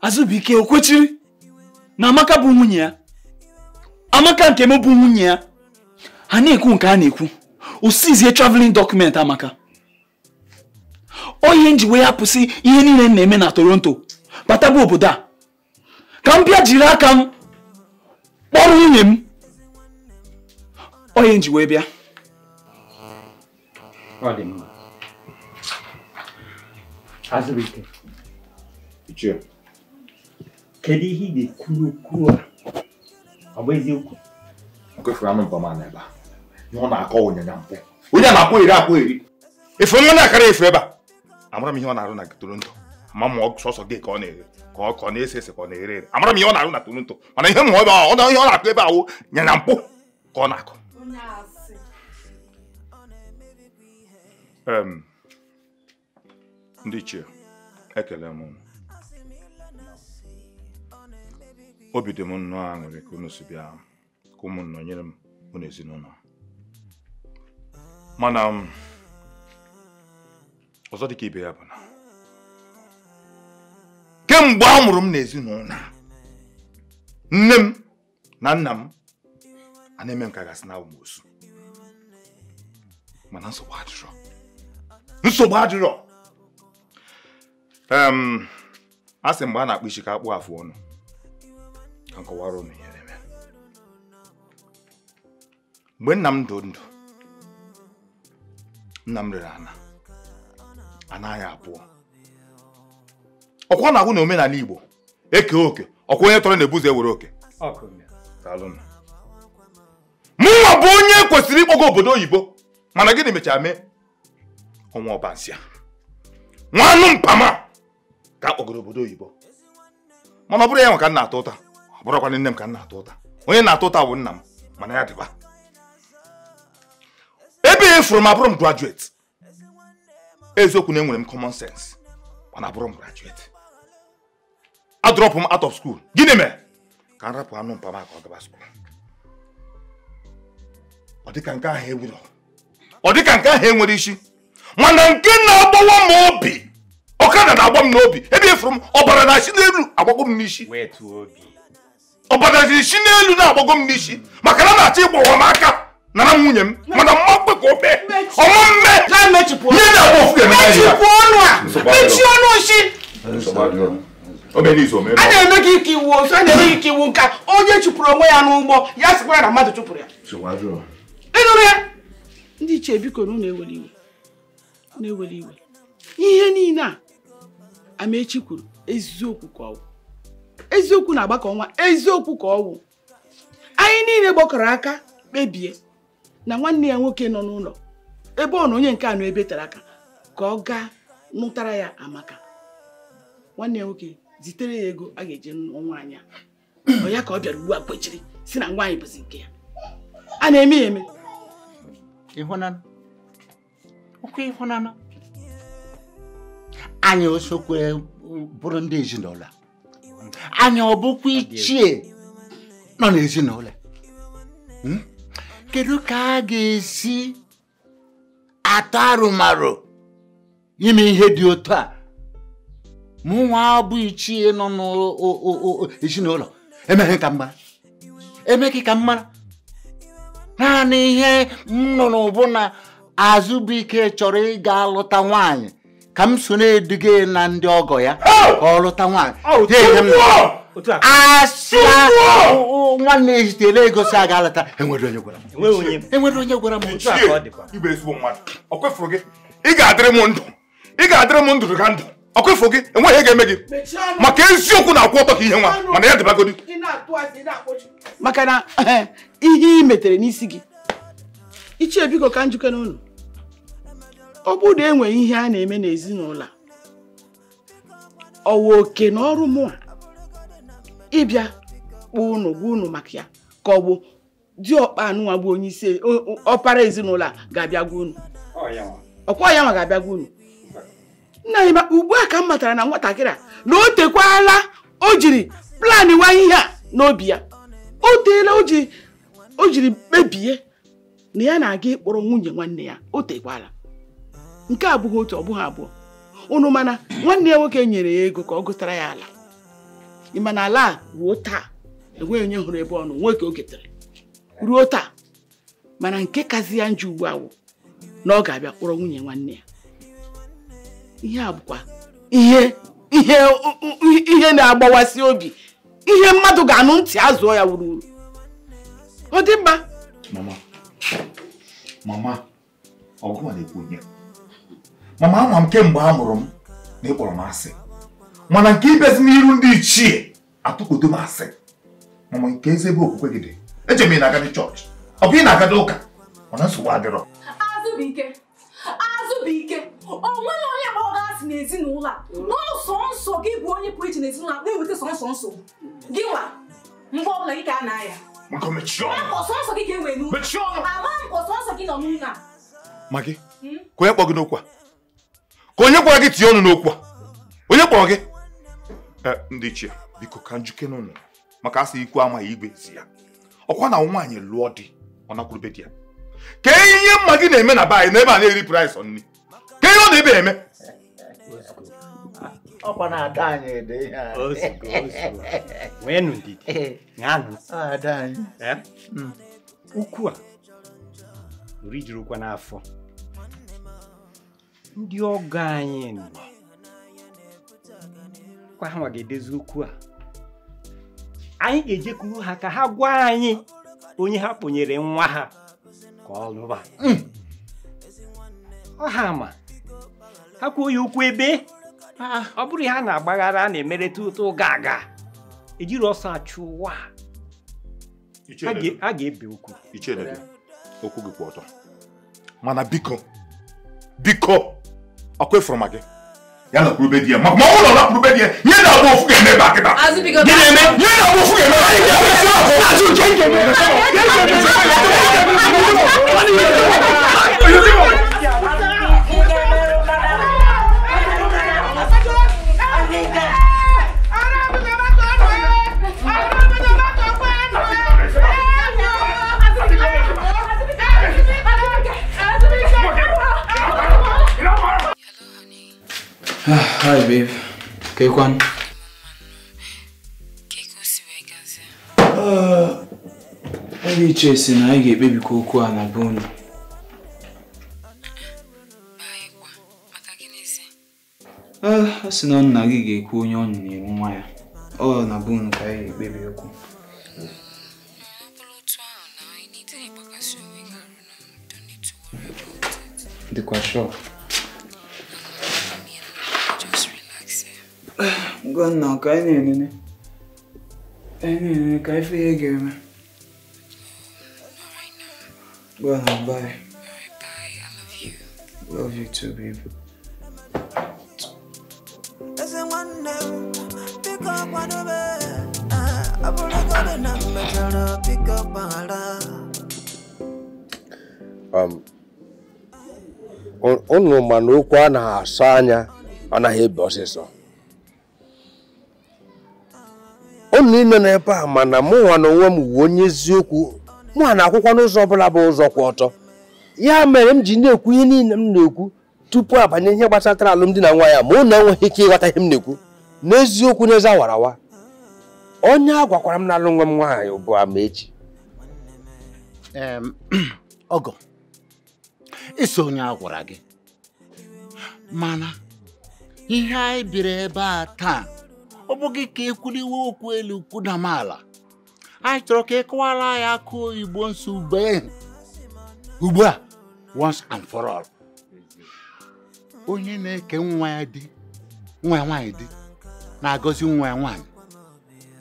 [SPEAKER 2] Azụbụike o na Amaka bụ nwunye ya Amaka nke m bụ nwunye ya ha na-ekwu nke a na-ekwu osizie traveling document Amaka onye ihe nji wee ihe niile m na-eme na Toronto bataba obodo a ka m bịa jiri aka m Ọrụ nwunye m onye nji wee bịa
[SPEAKER 5] ọ dị mma azụrụ ike ichie kedu ihe ị ga-ekwuru
[SPEAKER 1] a ọ bụ eziokwu nkwefuru anụ mbama n'ebe a na ọ na-akọ onyanya mpụ onye na-akpọ iri akpọ iri efe onye na-akara efe ebe a amara m ihe ọ na-arụ na toro ndụ ma ọ sọsọ gị ka ọ na-ere ka ọ kọ na-ese ese ka ọ na-ere ere amara m ihe ọ na-arụ na toronto mana ihe mmụọ ebe ọ na ihe ọ na-akụ ebe ahụ nye na mpụ ka ọ na-akụ ndị ichie ekele m obi dị m nnọọ aṅụrị ka unu si bịa ka ụmụnna nyere m unu ezinụlọ mana ọzọ ka ibe ya bụ na kemgbe a mụrụ m n'ezinụlọ nne m na nna m a na-eme m gasị na amosu mana nsogbu adịrọ nsogbu adịrọ a sị mgbe a na-akpụ isi ka akpụ afụ ọnụ ka nkọwara ụnụ ihe na-eme mgbe nna m dị ndụ nna m rere ana anaghị abụọ ọkwa na-agwụ na omenala Igbo eke oke ọkwa onye tọrọ na-ebuzo ewere oke mụnwa bụ onye kwesịrị ịkpọga obodo oyibo mana gịnị mechara mee ọnwa ọbansịa nwanụ mpama ka akpọgoro obodo oyibo mana ọ bụrụ ya nwa ka na-atọ ụta ọ bụrụkwana nne m ka na-atọ ụta onye na-atọ ụta bụ nna m mana ya dịba ebe e m abụrụ m graduate eziokwu na enwere m common sense mana abụrụ m graduate drop m out of school gịnị mere ka m anụ ọ dịka nke ahụ ewuro ọ dịka nke e nwere isi mana nke na-agbawa m obi na obi ebe m na-achị n'elu agbago m n'isi isi maka na na-achọ ịgbawa aka nwunye m mana
[SPEAKER 2] na
[SPEAKER 1] si a na-eme
[SPEAKER 2] gị ike iwu otu a na-eme gị ike iwu nka onye chụpụrụ onwe ya n'ụgbọ ya sịkwa ya na mmadụ chụpụrụ ya ịnụrụ ya ndị iche biko na unu ewere iwe na-ewere iwe ihe niile a Amaechi kwuru eziokwu ka ọwụ eziokwu na-agbakọ nwa eziokwu ka ọwụ anyị niile gbakọrọ aka kpebie na nwanne ya nwoke nọ n'ụlọ ebe ọ na onye nke a nọ ebe tara aka ka ọ gaa nụtara ya amaka nwanne ya nwoke zitere ya ego a ga eji n'ọnwa anyị ọ ya ka ọ bịara ugbu a kwechiri si na nwaanyị bụzi nke ya a na-eme ya eme
[SPEAKER 7] ịhụnanụ ọkwa ịhụnanụ anyị osokwe bụrụ ndị ezinụlọ anyị ọ bụkwa ichie nọ n'ezinụlọ hmm? kedu ka a ga-esi atọ arụmarụ ime ihe dị otu a mụ mụnwa abụ ichie nọ n'ezinụlọ emeghị ka mma emeghị ka mma naanị ihe m nọ n'ụbụ na azụbụike chọrọ ịga lụta nwaanyị ka m so na-eduga na ndị ọgọ ya ka ọ lụta nwaanyị oh, asị nwanne ya zitere ego si aga alata enwere onye gwara m e ị ga-adịrị m ndụ ị ga-adịrị m ndụ ka
[SPEAKER 1] ndụ ọkụfụ gị enweghị ga-eme gị
[SPEAKER 2] maka eziokwu na-akwụ ọtọ ka ihe nwa mana ya dịbagodi maka na eh, ihe ị metere n'isi gị ichie biko ka njikere ụlọ ọ bụrụ na enwere ihe a na-eme n'ezinụlọ ọwa oke na ọrụ mụa ịbịa kpọọ ụnụ gwa ụnụ maka ya ka ọ bụ diọkpa anụnwa bụ onye isi ọpara ezinụlọ a ga-abịa gwa ụnụ ọkwa ya nwa ga-abịa gwa ụnụ nna anyị ugbu a ka m matara na nwatakịrị a na o tekwala o jiri plan wanye ihe a n'obi ya o teela o jiri kpebie na ya na-aga ịkpọrọ nwunye nwanne ya o tekwala nke a bụghị otu ọ bụghị abụọ unu mana nwanne ya nwoke nyere ya ego ka ọ gụtara ya ala ma na ala a ruo taa enweghị onye hụrụ ebe ọnụ nwoke o getere ruo taa mana nke kazi ya njọ ugbu awụ na ọ ga-abịa kpọrọ nwunye nwanne ya ihe a bụkwa ihe ihe ihe na-agbawasị obi ihe mmadụ ga-anụ ntị azụọ ya wuruwuru ọ dị mma
[SPEAKER 1] mama mama ọgụwa na-ekwu ihe mama ama m kemgbe a mụrụ m na ịkpọrọ m asị mana nke ibezi n'iru ndị ichie atụkpodo m asị mama nke ezi ebe okwukwe gị dị ejem ị na-agadi chọọchị ọ bụ ị na-agadi ụka mana nsogbu
[SPEAKER 7] adịrọ
[SPEAKER 4] azụ bụ ike azụ bụ ike ọ nweghị onye kpọrọ gị asị n'ezinụlọ a n'ụsọ nsọ gị bụ onye pụrụ iche n'ezinụlọ a na-eweta sọnsọ nsọ gị nwa mgbe ọbụla gị ka a na-aya sọnsọ gị ga-ewe n'ụlọ ama mpọ sọnsọ gị nọ n'ụlọ a magi hmm?
[SPEAKER 1] ka onye kpọ gị n'okwu a ka onye gwara gị tinye ọnụ n'okwu a onye kpọrọ gị eh, ndị ichie biko ka njike n'ụlọ maka asị ikwu amaghị igwe si ya ọkwa na nwaanyị lụọ di ọ nakwurube di ya ka ihe mma gị na-eme na be anyị n'ebe a na-eri praịs nri ọ na ebe eme
[SPEAKER 7] ọkwa na-ada anyị ede ihe weenụ ndidi
[SPEAKER 5] ṅanụ eh. eh? hmm. ukwu a rijirikwa n'afọ ndị ọgọ anyị nọ kwa ha ga-edezi ukwu a anyị ga-ejekwuru ha ka ha gwa anyị onye ha kpọnyere nwa ha ka ọ lụba hmm. ọha ma ha kwuo ya ụkwụ ebe ah, ah. ọ bụrụ ihe na-agbaghara a na-emereta ụtọ ụga aga ejiri ọsọ achụ ụwa a ga-ebe okwu okwu gị kwụ ọtọ
[SPEAKER 1] mana biko biko ọkụ ịfụrụ ma gị ya na kwurube di ya ma na kwurube di ya nye na ọgbọ ofu ga-eme ebe akịta gị eme nye na ọgbọ
[SPEAKER 3] ofu ga-eme
[SPEAKER 2] Hi, babe. Ka ị kwanụ? Oge iche si na anyị ga-ekpebikwa okwu a na be unu. sị na nna gị ga-ekwu onye ọ na nwa ya ọ na be ka anyị ga-ekpebi okwu
[SPEAKER 4] dịkwa
[SPEAKER 3] Gọvanọ ka anyị na-enene anyị
[SPEAKER 2] na ka ihe ga-eme. bye.
[SPEAKER 3] Love you too, babe.
[SPEAKER 6] Uh, um, unu ma na okwu a na asọ anya anaghị ebe ọsịsọ unu niile nọ ebe a mana nwa na onwe m wuo onye eziokwu mụnwa na akwụkwọ n'ụzọ ọbụla bụ ụzọ kwụ ọtọ ya mere m ji na-ekwu ihe niile m na-ekwu tupu abanye ihe gbasatara alụmdi na nwa ya ma unu enweghị ike ịghọta ihe m na-ekwu n'eziokwu n'ezi awarawa onye a gwakwara m na alụ nwa m nwaanyị ugbu a ma echi
[SPEAKER 7] ọgọ [CLEARS THROAT] iso onye a gwara gị mana ihe anyị biri ebe a taa ọ bụghị ka e iwe okwu elu mala anyị chọrọ ka ị e kọwara anyị akụ oyibo nso ugbu a once and for all onye na-eke nwa ya di nwa ya nwaanyị di na-agọzi nwa ya nwaanyị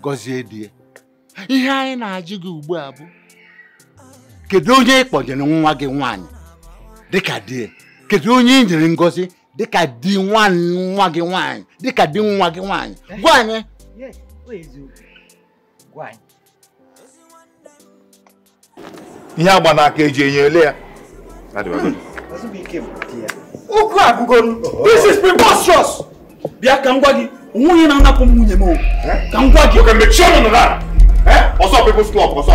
[SPEAKER 7] gọzie di ya ihe anyị na-ajụ gị ugbu a bụ kedu onye ị nwa gị nwaanyị dịka di ya kedu onye i nyere ngọzi dịka di nwa gị nwaanyị dịka di nwa gị nwaanyị eh?
[SPEAKER 5] gwa anyị
[SPEAKER 1] ihe agba n'aka eji enye ele ya
[SPEAKER 2] ụkwụ agụgoro oh. this is preposterous
[SPEAKER 1] bịa ka m gwa gị onweghị na-anapụ m nwunye m eh? ka m gwa gị ọsọ eh? people's club ọsọ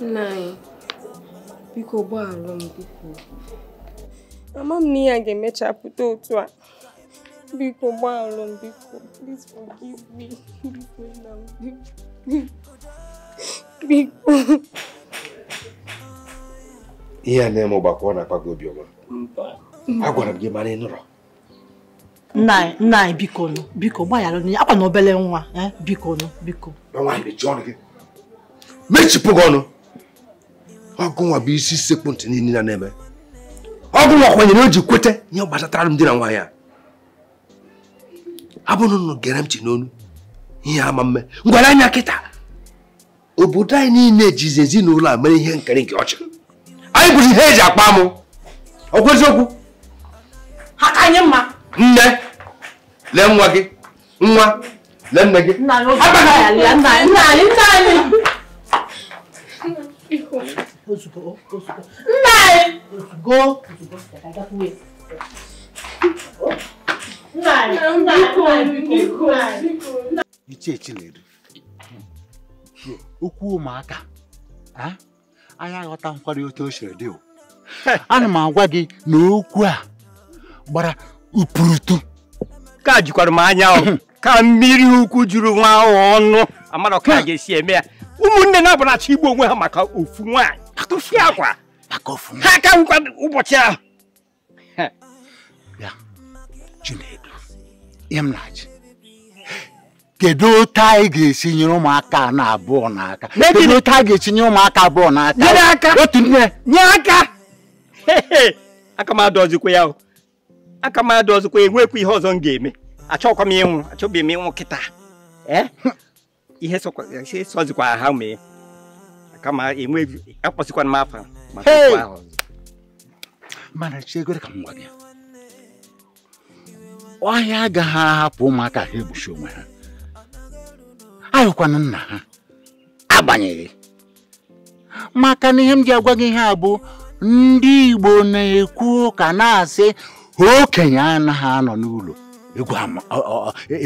[SPEAKER 4] nna biko m na ihe ga-emechapụta otu a biko gbaghara biko please forgive me biko nna m
[SPEAKER 6] ihe a na-eme ọgbakọ na-akpa gị agwara m gị mara ị nụrụ
[SPEAKER 4] nnaị anyị biko nụ biko gbaghara onye akwa na obere nwa e, biko nụ biko
[SPEAKER 6] mechipụ gị ọnụ ọgụ nwa bụ isi sekpu ntị niile na-eme ọgụ nwa kwenyere o ji kweta ihe gbasatara m di na nwaanyị a abụrụ nụ gere m chi n'onu ihe ama mme ngwara anya kịta obodo anyị niile jizi ezinụlọ a mere ihe nkiri nke ọcha anyị bụzi ihe eji akpa mụ ọgwụ anyị mma nne lee nwa gị nwa lee nne gị nna anyị
[SPEAKER 3] ozugbo
[SPEAKER 4] ozugbo gagakwuo
[SPEAKER 2] nna anyị nna anyị
[SPEAKER 7] ichechi na-eri okwu ụmụaka anyị aghọta nkwari otu o siri dị [LAUGHS] ana m agwa gị na okwu a gbara upurutu
[SPEAKER 5] ka jikwara m anya hmm. ka mmiri ukwu juru nwa ahụ ọnụ amara ka ga-esi eme ya ụmụnne na abụnachi igbo onwe ha maka ofu nwaanyị akụfi akwa ha aka nkwa ụbọchị ahụ ya
[SPEAKER 7] Chinedu ihe kedu otu anyị ga-esi nyere ụmụaka na abụọ n'aka kedu otu anyị ga-esi nye ụmụaka abụọ n'aka otu nne
[SPEAKER 5] nye aka aka m adọzikwa ya aka m adọzikwa enwekwa ihe ọzọ m ga-eme achọkwa m ịnwụ achọbeghị m ịnwụ kịta ihe sọzikwa ha mee aka m enweghị akpọsịkwana e m afa maka okwu ahụ
[SPEAKER 7] mana chiegoro ka m gwa gị ọhịa agaghị ahapụ ụmụaka ha egbuchi onwe ha ahụkwana nna ha agbanyeghị maka na ihe m ji agwa gị ihe a bụ ndị Igbo na-ekwu ụka na-asị okenye anaghị anọ n'ụlọ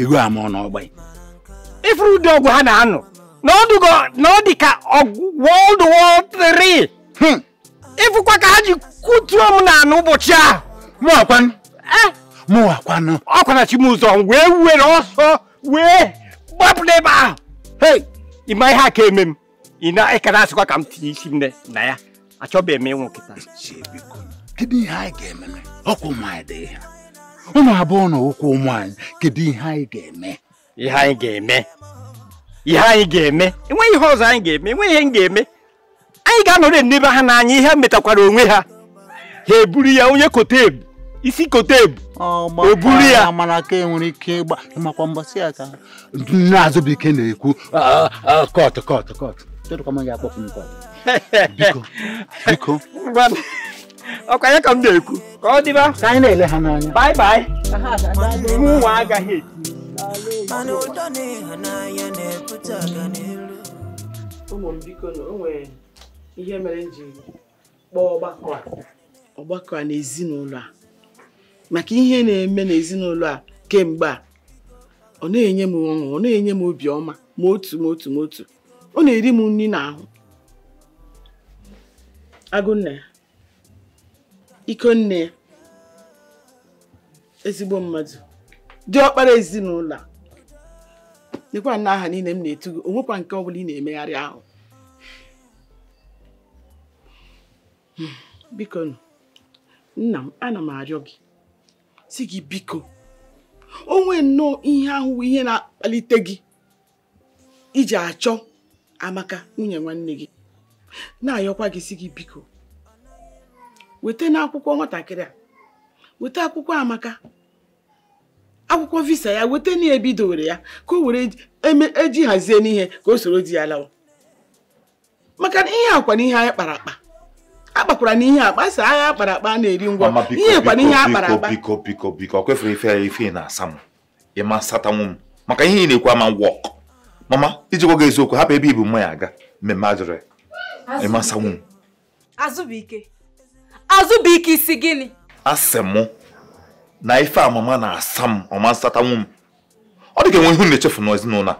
[SPEAKER 7] egwu ama n'ọgba ifuru ụdị ọgwụ ha na-anọ na ọ dị ka World War hmm. III ịfụkwa ka
[SPEAKER 5] ha ji kutuo m na n'ụbọchị ahụ
[SPEAKER 7] mụwakwanụ eh?
[SPEAKER 5] ọkwana wee were ọsọ wee apụla ebe ahụ hei ma ihe ka eme m ị na-ekere asịkwa ka m tinye isi m na ya achọbeghị m ịnwụ
[SPEAKER 7] kedu anyị ga-eme ọkwa ụmụanyị dị ihe na kedu ihe anyị ga-eme
[SPEAKER 5] ihe anyị ga-eme ihe anyị ga-eme enweghị ihe ọzọ anyị ga-eme enweghị ihe m metakwara onwe ha
[SPEAKER 7] e ha eburu e e ya onye kotebu isi kotebu o e ya mana ka enwere ike ịgba makwa mbọsị ya na-azụ bụ ike na-ekwu kọt kọt kọt ka m na-ekwu ka ọ dịba ka anyị na-ele ha n'anya bye bye
[SPEAKER 3] nwa agaghị biko na o nwere ihe mere m kpọọ ọgbakọ
[SPEAKER 2] a ọgbakọ a na a maka ihe na-eme n'ezinụlọ a kemgbe a ọ na-enye m ọṅụ ọ na-enye m obiọma ma otu ma otu ma otu ọ na-eri m nri ahụ agụnne ya ikonne ezigbo mmadụ dị ọkpara ezinụlọ a lekwa na aha niile m na-etu gị onwekwa nke ọ bụla ị na-emegharị ahụ hmm, biko nna m ana m arịọ gị si gị biko onwe nnọọ ihe ahụ ihe na-akpalite gị iji achọ amaka nwunye nwanne gị na-ayọkwa gị si gị biko weta n'akwụkwọ nwatakịrị a weta akwụkwọ amaka akwụkwọ visa ya weta na ya ka o were eji e hazie n'ihe ka o soro di ya lawa maka na ihe akwa na ihe anyị kpara akpa akpakwara na ihe akpa sị agha akpara akpa na-eri ngwa ihe kwana ihe akpara akpa
[SPEAKER 1] biko biko biko ọ kwefere ife ife na-asa m ịma satanwu m maka ihe ị na-ekwu ama wọk mama ijikwa gị eziokwu hapụ ebe ibu mmanya aga mmemme ajụrụ ịma satanwu m
[SPEAKER 4] azụbụike azụbụike isi gịnị
[SPEAKER 1] asị m na ife amama na-asa m ọma nsatanwu m ọ dị ka enwe ihu na-echefu n'ezinụlọ a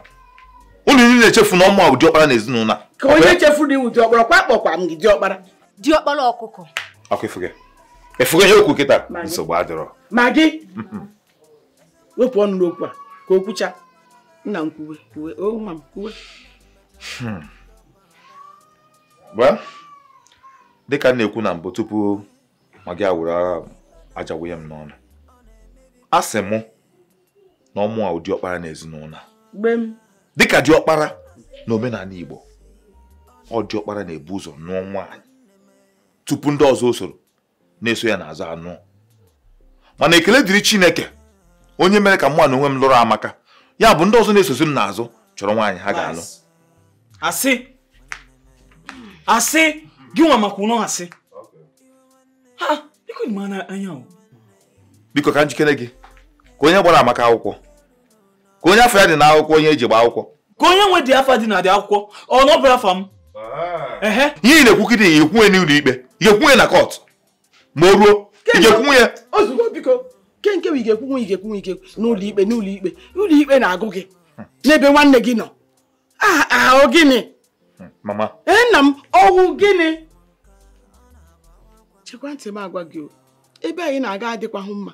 [SPEAKER 1] ụlọ iri na-echefu na ọmụ ụdị ọkpara na ezinụlọ a ka onye
[SPEAKER 2] chefuru iwu dị ọkpara kwa akpọkwa m gị dị ọkpara ọkpọrọ ọkụkọ
[SPEAKER 1] ọkụ ifuge okwu kịta nsogbu adịrọ
[SPEAKER 2] ma gị wepụ ọnụ n'okwu a ka o nna m kwuwe kwuwe m kwuwe
[SPEAKER 1] hmm. dịka na-ekwu na mbụ tupu ma gị awụrụ agha aja m n'ọnụ a sị mụ na ọmụ a dịka dị ọkpara na omenala Igbo ọ dị na-ebu ụzọ n'ọnwa tupu ndị ọzọ usoro na-eso ya n'azụ anụ mana ekele dịrị chineke onye mere ka mụ na onwe m lụrụ amaka ya bụ ndị ọzọ na-esozi m n'azụ chọrọ nwaanyị ha ga-alụ asị
[SPEAKER 2] asị gị nwa maka ụlọ asị ha biko dị mana anya
[SPEAKER 1] biko ka njikere gị ka onye gbara amaka akwụkwọ ka onye afọ ya dị n'akwụkwọ onye eji gba akwụkwọ ka
[SPEAKER 2] onye nwe dị afa dị na dị akwụkwọ
[SPEAKER 1] ọ na ọ bụrụ afa m Ah. ihe ị na-ekwukide ya ekwunye n'ụlọ ikpe ga ekwunye na kọt ma o ruo igekwunwe ya
[SPEAKER 2] ozugbo biko ke nke bụ igekwunwe igekwunwe ike n'ụlọ ikpe n'ụlọ ikpe ụlọ ikpe na-agụ gị n'ebe nwanne gị nọ ahụ ah, gịnị hmm, mama ee nna m ọwụ gịnị chekwa ntị m agwa gị ebe anyị na-aga adịkwahụ mma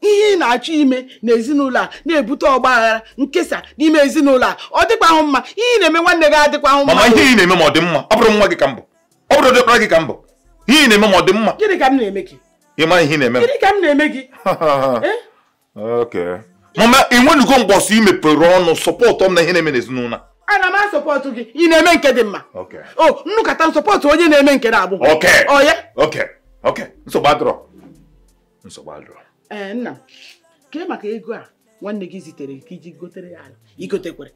[SPEAKER 2] ihe ị na-achọ ime n'ezinụlọ a na-ebute ọgba aghara nkesa n'ime ezinụlọ a ọ dịkwa ahụ mma ihe ị na-eme nwanne gị adịkwa ahụ mma mama ihe
[SPEAKER 1] ị na-eme ma ọ dị mma ọ bụrụ nwa gị ka mbụ ọ bụrụ dịkpara gị ka mbụ ihe ị na-eme ma ọ dị mma
[SPEAKER 2] gịnị ka m na-eme gị
[SPEAKER 1] ị mara ihe ị na-eme gịnị ka m na-eme gị [LAUGHS] eh? mama ị nwenugo mgbọsị i mepere ọnụ sọpọtụ m na ihe na-eme n'ezinụlọ
[SPEAKER 2] ana m asọpọtụ gị ị na-eme nke dị mma o nnukata nsọpọtụ onye na-eme nke na-abụ
[SPEAKER 1] ọ ya nsogbu adịrọ nsogbu adịrọ
[SPEAKER 2] ee eh, nna kee maka ego a nwanne gị zitere ka iji gotere ya ala
[SPEAKER 1] igotekwere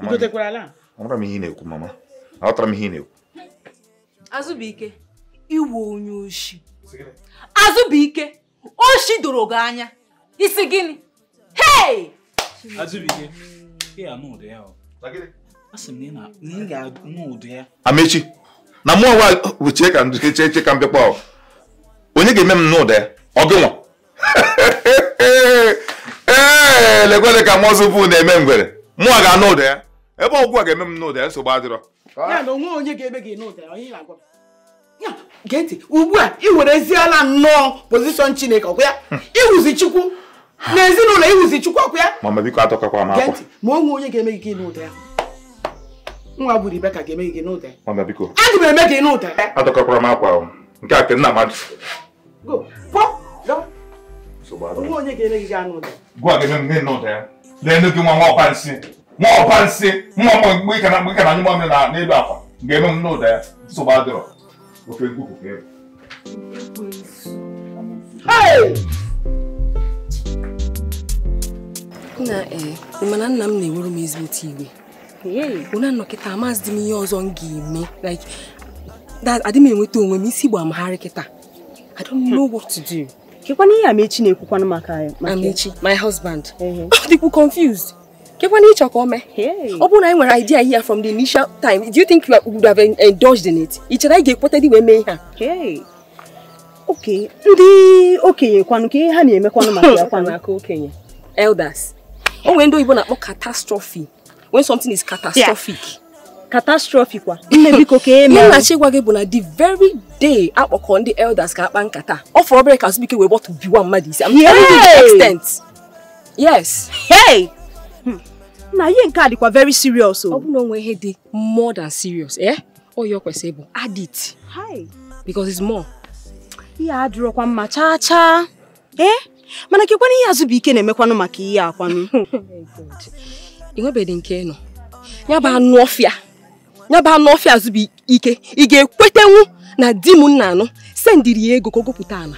[SPEAKER 1] igotekwere ala ọtara na-ekwu mama ọtara m
[SPEAKER 4] na-ekwu onye oshi azụbike oshi doro gị anya isi gịnị hei azụbụike ya
[SPEAKER 2] anụ ya na ị ga ya
[SPEAKER 1] amechi na ka onye ga-eme m n'ụda ya ọgụnwa ee ka bụ na-eme ngwere mụọ ga-anụ ụda ya ebe ọgwụ a ga-eme m n'ụda ya nsogbu adịrọ ugbu a ị wereziela nnọọ pozishọn chineke ya
[SPEAKER 2] chukwu na ezinụlọ iwuzi chukwu
[SPEAKER 1] ya biko atọkakwa m akwa
[SPEAKER 2] ma onwe onye ga-eme gị n'ụda ya nwa bụ Rebeka ga-eme gị n'ụda ya mama biko aga m eme gị n'ụda ya
[SPEAKER 1] atọkakwara m akwa nke a ke
[SPEAKER 2] Go. Pop. Go. So bad. nye ke ne ga Go
[SPEAKER 1] a ke ne no de. Le no ke mo mo pa nsi. Mo pa nsi. Mo mo gbe kana gbe kana ni mo mi na na elu akwa. Ge no no de. So O ke gugu ke.
[SPEAKER 3] Hey!
[SPEAKER 4] Nna eh, mana nna m na-ewuru m ezigbote iwe. Onye anọkịta amazi m ihe ọzọ m ga-eme. Like, adị m enweta onwe m isi gbaa m harị kịta. I don't know what to do. Kekwana ihe Amechi na-ekwukwanụ maka Amechi, my husband. Ọ uh-huh. dịkwu ah, confused. Kekwana ịchọ ka o mee. Ọ bụrụ na anyị nwere idea here from the initial time, do you think you would have indulged in it? Ị chere anyị ga-ekweta dị wee mee Okay. a? Okay, ndị okenye kwanụ ka ihe ha na-emekwanụ maka ya kwanụ. [LAUGHS] Aka okenye. Elders. O nwere ndị oyibo na-akpọ catastrophe. When something is catastrophic. Yeah. catastrophe kwa nne biko ka eme nna chigwa gị bụ na the very day akpọkọ ndị elders ka akpa nkata ọ fọrọ obere ka azụbike wee bọtụ biwa mmadụ isi am telling you the extent yes hey hmm. na ihe nke a dịkwa very serious o ọ bụrụ na onwe ihe dị more than serious eh ọ ya kwesịrị bụ adit. it hi because it's more ihe adịrọkwa mma chaa chaa eh mana kekwana ihe azụbike na-emekwanụ maka ihe akwanụ [LAUGHS] oh ị nwebeghị nke nọ ya bụ anụ ọfịa ya bụ anụ ọfịa bụ ike ị ga-ekwetenwu na di m nna anụ sendiri ya ego ka ọ gụpụta ala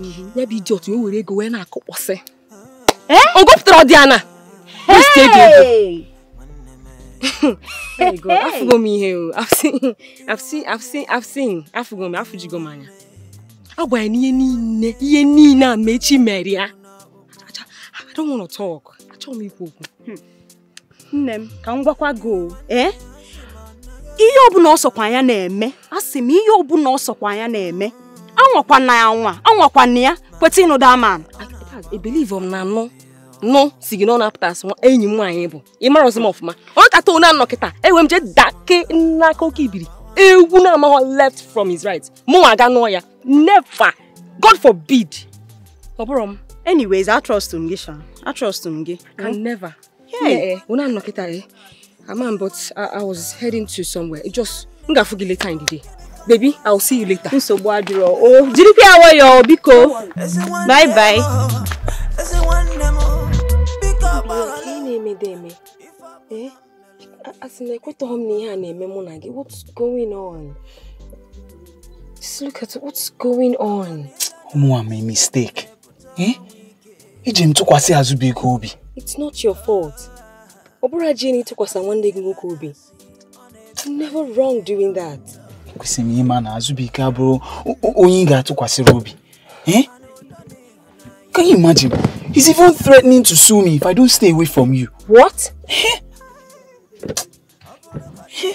[SPEAKER 4] mhm. ya bụ iji otu o were ego wee na-akụkpọsị eh? o gụpụtara ọdị ana afụgo m ihe afụgo m afụjigo m anya agwa ya n'ihe niile ihe niile a mechi mere ya I m ikwu okwu hmm. nne m ka m gwakwa gị ihe ọbụla ọ sọkwa ya na-eme a sị m ihe ọbụla ọ sọkwa ya na-eme na ya nwa anwa na ya kweta ịnụda ama ebelive m na nụ nụ si gị na ọ na-apụta asị enyi m nwaanyị bụ ịmara ọzọ m ọfụma ọ kata onye anọ kịta enwe m jee dake n'aka oke ibiri ewu na-amaghọ left from his right mụ aga nụọ ya never god forbid ọ bụrụ m anyways atrọst m gị sha atrọst m gị can never ee onye eh, anọ kịta ee eh. Aman, but I, I was heading to somewhere. It just ngafugile later in the day. Baby, I'll see you later. Nsogbu adịrọ. Oh, did you hear what awọ biko. Bye bye. Eh? What's going on? Just look at what's going on.
[SPEAKER 2] made a mistake. Eh? Iji m tụkwasị Azụbụike obi.
[SPEAKER 4] It's not your fault. ọ bụrụ ji n'ịtụkwasị nwanne gị nwoke obi it's never wrong doing that.
[SPEAKER 2] ekwesịrị m ịma na Azụbụike abụrụ onye ị ga-atụkwasịrị eh? can you imagine he's even threatening to sue me if I don't stay away from you.
[SPEAKER 4] what? Eh? Eh?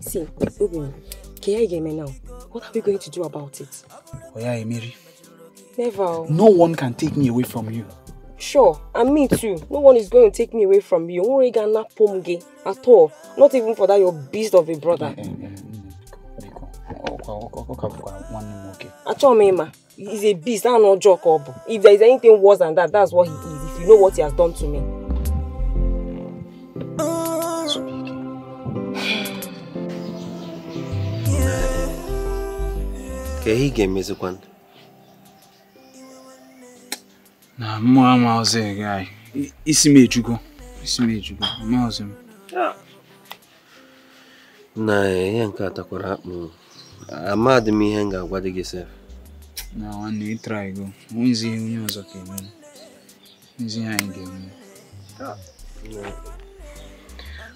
[SPEAKER 4] see Obinna Can ya ga me now what are we going to do about it? Oh yeah, Emeri. never. no
[SPEAKER 2] one can take me away from you
[SPEAKER 4] sure, and me too, no one is going to take me away from you. Only gonna pomge at all. Not even for that your beast of a brother. Achomema he's a beast, I'm not joke up. If there is anything worse than that, that's what he is. If you know what he has done to me.
[SPEAKER 6] Ka ihe ị ga-emezikwanụ na mụ amaghịzi gị anyị
[SPEAKER 2] isi m ejugo isi m ejugo amaghịzi
[SPEAKER 6] na ihe nke a takwara akpụ amadị m ihe m ga-agwa dị gị sef
[SPEAKER 2] na nwanne ịtraigo onwezi ihe onye ọzọ ka eme onwezi ihe anyị ga-eme
[SPEAKER 6] ọ ah.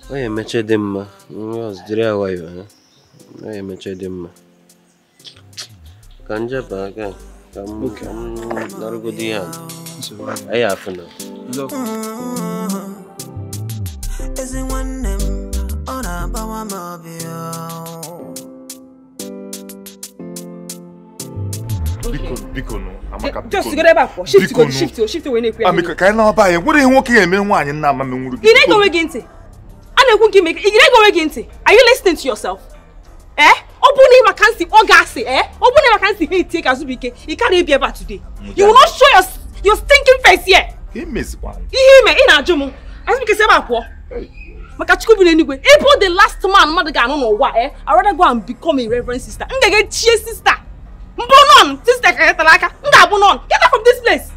[SPEAKER 6] ya emeche dị mma onye ọzọ jiri awayo ha ọ ya emeche dị mma ka njeba aga ka m narụgodo ihe a ẹ yà fún un.
[SPEAKER 3] ezi nwanne m ọ na-agbawa m
[SPEAKER 7] obi
[SPEAKER 1] biko biko nụ amaka eh, biko just go ebe akwọ shift ah, to shift to shift to na-ekwu ya amika ka anyị na-aba anyị nwere ihe nwoke ga-eme nwaanyị nna ama m nwuru gị ị na-ege onwe
[SPEAKER 4] gị ntị a na-ekwu are you listening to yourself eh Open bụrụ na ị see. ntị gas ga eh Open bụrụ na ị see. ntị take itie ka azụbụ ike ị ka na today you will not show yourself Your stinking face here. Him is one. Him in Ajumu. As we can say about what? Maka chukwu bi n'enigwe. Ịbụ the last man mother mmadụ ga-anụ n'ụwa eh. I rather go and become a reverend sister. M ga-aga chie sister. Mbụ on. sister ka nyetara aka. M ga-abụ Get out from this place.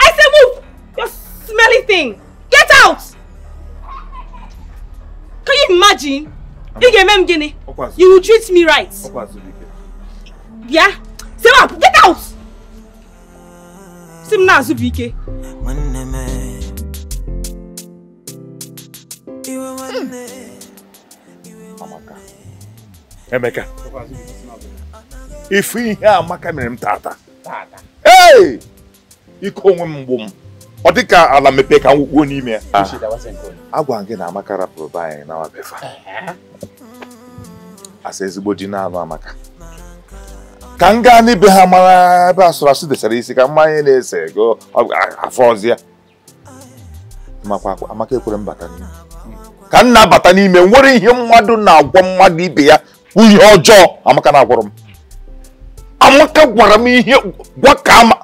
[SPEAKER 4] I say move. You smelly thing. Get out. Can you imagine? You get me, m gịnị? You will treat me right. Yeah. isi m na-azụ bụ ike e.
[SPEAKER 1] Emeka ifu ihe amaka mere m tata ee ike onwe m mgbu m ọ dị ka ala mepee ka m nwụkpuo n'ime ya agwara gị na amaka rapụrụ be anyị na asa ezigbo di na anụ amaka ka m gaa n'ibe ha mara ebe asụrasụ desara isi ka mmanya na-ese ego afọ ọzọ ya amaka ekwere mbata ka m na-abata n'ime nwere ihe mmadụ na-agwọ mmadụ ibe ya bụ ihe ọjọọ amaka na-agwọrọ m amaka gwara m ihe gwa ka ama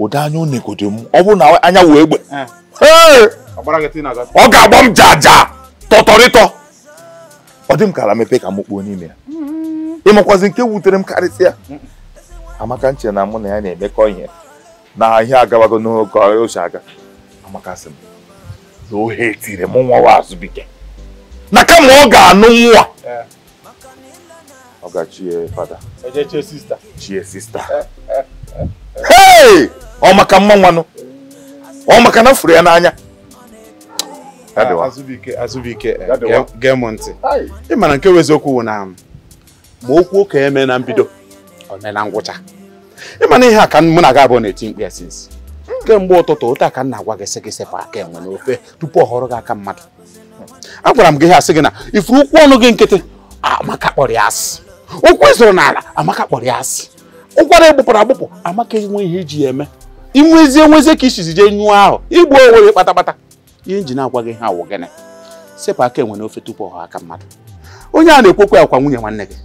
[SPEAKER 1] ụdị anya onegodo m ọ bụrụ na anya wee egbe ọ ga-agba m jaja tọtọrịtọ ọ dị m ka ala mepe ka m kpuo n'ime ya ịmakwazi nke wutere m karịsịa amaka nche na mụ na ya na-emekọ ihe na ahịa agabago n'oge ochie aga amaka sị m na ohe tiri m nwa azụbike na kama ọ ga-anụ nwa ọ ga-chie fada e chie sista e, e, hei ọ maka mma nwanụ ọ maka na furu ya n'anya
[SPEAKER 2] azụbike azụbike gee m ntị ị mara nke bụ eziokwu na um, ma okwu oke eme na mbido o mee na ngwụcha ịma na ihe a ka mụ na gị abụọ na-eti mkpi ya sinsi kemgbe ụtụtụ ụta ka m na-agwa gị sị sepụ aka enwe n'ofe tupu ọ họrọ gị aka mmadụ agwara m gị ihe asị gị na ifuru ụkwụ ọnụ gị nkịtị amaka kpọrọ ya asị ụkwụ ịzụrụ n'ala amaka kpọrọ ya asị ụkwara egbupụrụ agbụpụ amaka enwe ihe iji ya eme inwezie nwezie ka isizi jee nyụọ ahụ igbu onwe gị kpatakpata ihe njin agwa gị ha awụ gịnị sepụ aka enwe n'ofe tupu ọ aka mmadụ
[SPEAKER 1] onye a na-ekwekwe akwa nwunye nwanne gị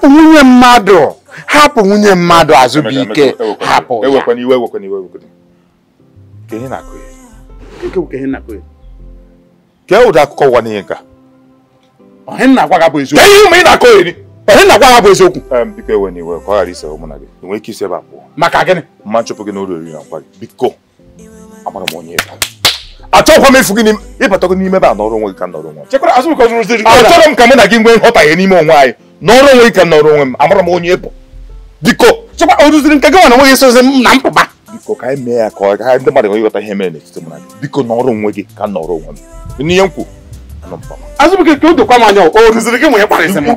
[SPEAKER 7] hapụ nwunye mmadụ hapụ nwunye mmadụ
[SPEAKER 1] azụbụike hapụ ya kee ụdị e akụkọ ụwa n'ihe nka na na gị bụ eziokwu maka gịnị mma nchụpụ gị oriri na gị. biko amara m onye achọghịkwa m efu gị ịbata gị n'ime ebe a nọrọ onwe gị ka nọrọ onwe achọrọ m ka mụ na gị nwee nghọtahie n'ime onwe anyị n'ọrụ onwe ka nọrọ onwe m amara m onye bụ biko chekwa o nke gị na nweghị esozi m na mpụba biko ka anyị mee ya ka ọ gaa ndị mmadụ ịghọta ihe mere n'etiti mụ na gị biko onwe gị ka nọrọ onwe m n'ihe m o dokwa m anya o gị nwe ịkparịsị m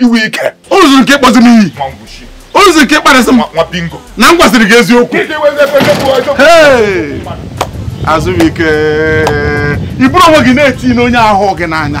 [SPEAKER 1] iwe ike o nke ịkpọzi m iyi o rụziri nke ịkparịsị na m gwaziri gị eziokwu azụbike ị onwe gị na-eti onye ahụ gị n'anya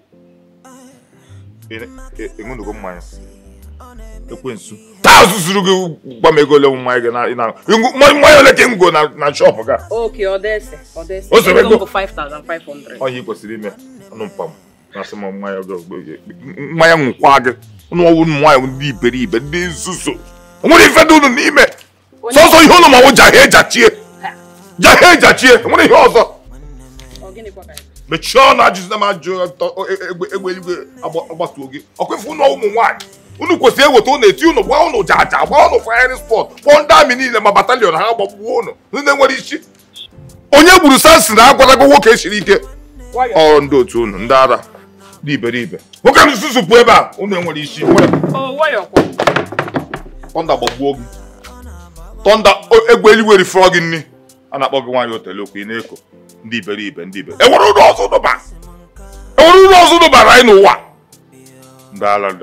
[SPEAKER 1] ṅụnugo mmanya ekwensu taa zuru gị gwa m ego ole mmanya gị mmanya ole ka ngo na shọpụ e ga
[SPEAKER 4] e o soro ego
[SPEAKER 1] ọhịa ị kwesịrị ime ọnụ na-asị m mmanya mmanya nwụkwa gị ụnụ ọwụ mmanya ndị iberibe ndị nzuzo o nwere ife dị unu n'ime sọsọ ihe ụnụ ma nwụ jahie jachie jachie nwere ihe ọzọ mechie ọnụ ajụjụ na m ajụ e, e, egbe eluigwe gị ọkwefu ụlọ ụmụ nwanyị unu kwesịrị eweta ụnụ eti ụnụ gba ụnụ jaja gba ụnụ fayarin spọt kpọọ ndị amị niile ma batalịọn ha gbagbuo ụnụ ndị nwere isi onye gburu sansi na agwarago nwoke e siri ike ọrụ ndị otu ụnụ ndị ara dị iberibe nwoke na nzuzu pụ ebe a ụnụ enwere isi tọnda gbagbuo gị tọnda egbe eluigwe gị nri a na-akpọ gị nwaanyị otele ị na-eko ndị iberibe ndị ibe enwere ụlọ ọzọ dụba enwere ụlọ ọzọ dụbara anyị n'ụwa ndị ala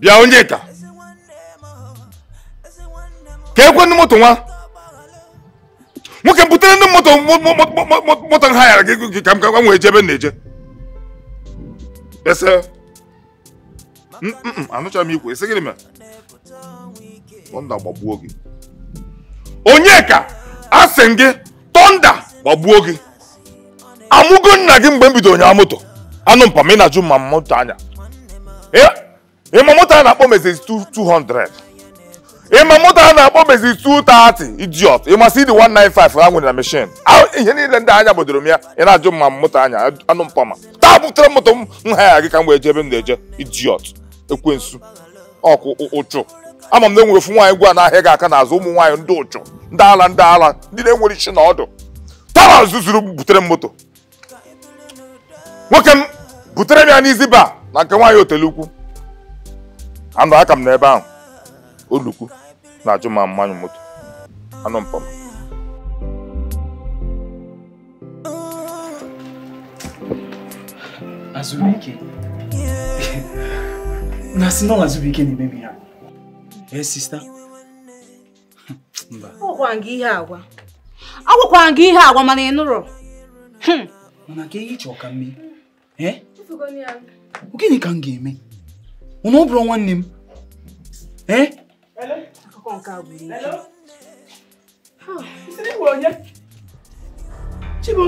[SPEAKER 1] bịa onye taa ka ekwe ndị moto nwa nwoke butere ndị moto moto nha yara gị ka m ka nwee jebe na-eje ese mm, mm, mm, anụcha m ikwu esi gịnị mere tọnda gbagbuo gị onyeka asị gị tọnda gbagbuo gị amụgo nna gị mgbe m bido moto anụ mpa m ị na-ajụ ma moto anya ịma moto a na-akpọ mezezi 200 ịma moto a na-akpọ bezi 230 idiot ịma si dị 195 ha nwere na mechin ihe niile ndị anya bodoro m ya ị na-ajụ mma m moto anya anụ mpama taa butere moto m nha ya gị ka m wee m na-eje idiot ekwensu ọkụ ụchụ ama m na enwere ofu nwaanyị gwa n'ahịa gị aka n'azụ ụmụ nwaanyị ndị ụchụ ndị ala ndị ala ndị na-enwere isi na ọdụ tara zuzuru butere m moto nwoke m butere m ya n'izi ba na nke nwaanyị Otelukwu ukwu aka m n'ebe ahụ oluku na-ajụ ma mmanyụ moto anụ mpama
[SPEAKER 2] na si nọ ike na-emebi ya ee sista
[SPEAKER 4] mba agwakwara gị ihe agwa ihe agwa mana ị nụrụ
[SPEAKER 2] hmm. mana ka ihe chọọ ka mme gịnị ka m ga-eme ụna ọ bụrụ nwanne m Hello? Akọ́kọ́ nǹkan àgbèrè. Hello? Ìsinmi wo yẹn? Chibo,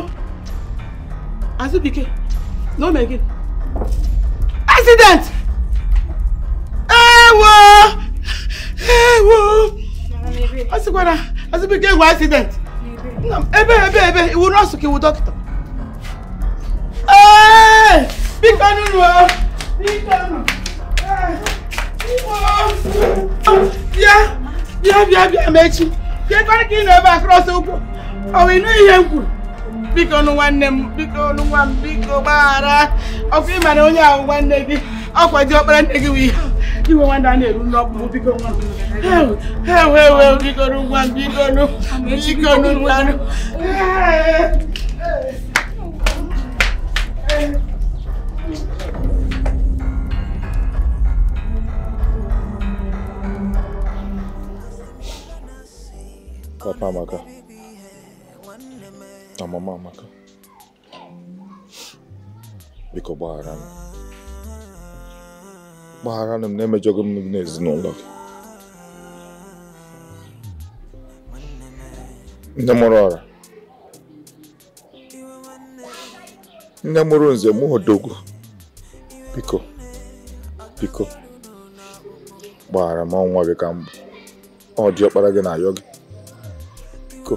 [SPEAKER 2] no me again. Accident! Ewo! Ewo! Asikwara, Azubike ewo accident. Ebe ebe ebe, iwu nọọsụ ka iwu dọkịta. Biko nunu o! Biko nunu! bịa bịa bịa bịa ma echi bịakwara ka ị nọ ebe a krọs ụkwụ ọ wụ ịnụ ihe m kwuru biko nụ nwanne m biko nụ nwa m biko gbaghara ọkwa ị mara onye ahụ nwanne gị ọkwa dị ọkpara nne gị wụ iwe nwanne a na-eru n'ọkpụ m biko nwa ewe ewe biko nụ nwa m biko nụ biko nụ nwa
[SPEAKER 3] m
[SPEAKER 1] Tamam pas maka. Na mama maka. Biko gbaghara m. ne m ne emejọghị m n'ezinụlọ gị. Nne mụrụ ọra. nze mụ odogwu. Biko. Biko. Gbaghara m ọnwa gị ka para ọ dị na ayọ biko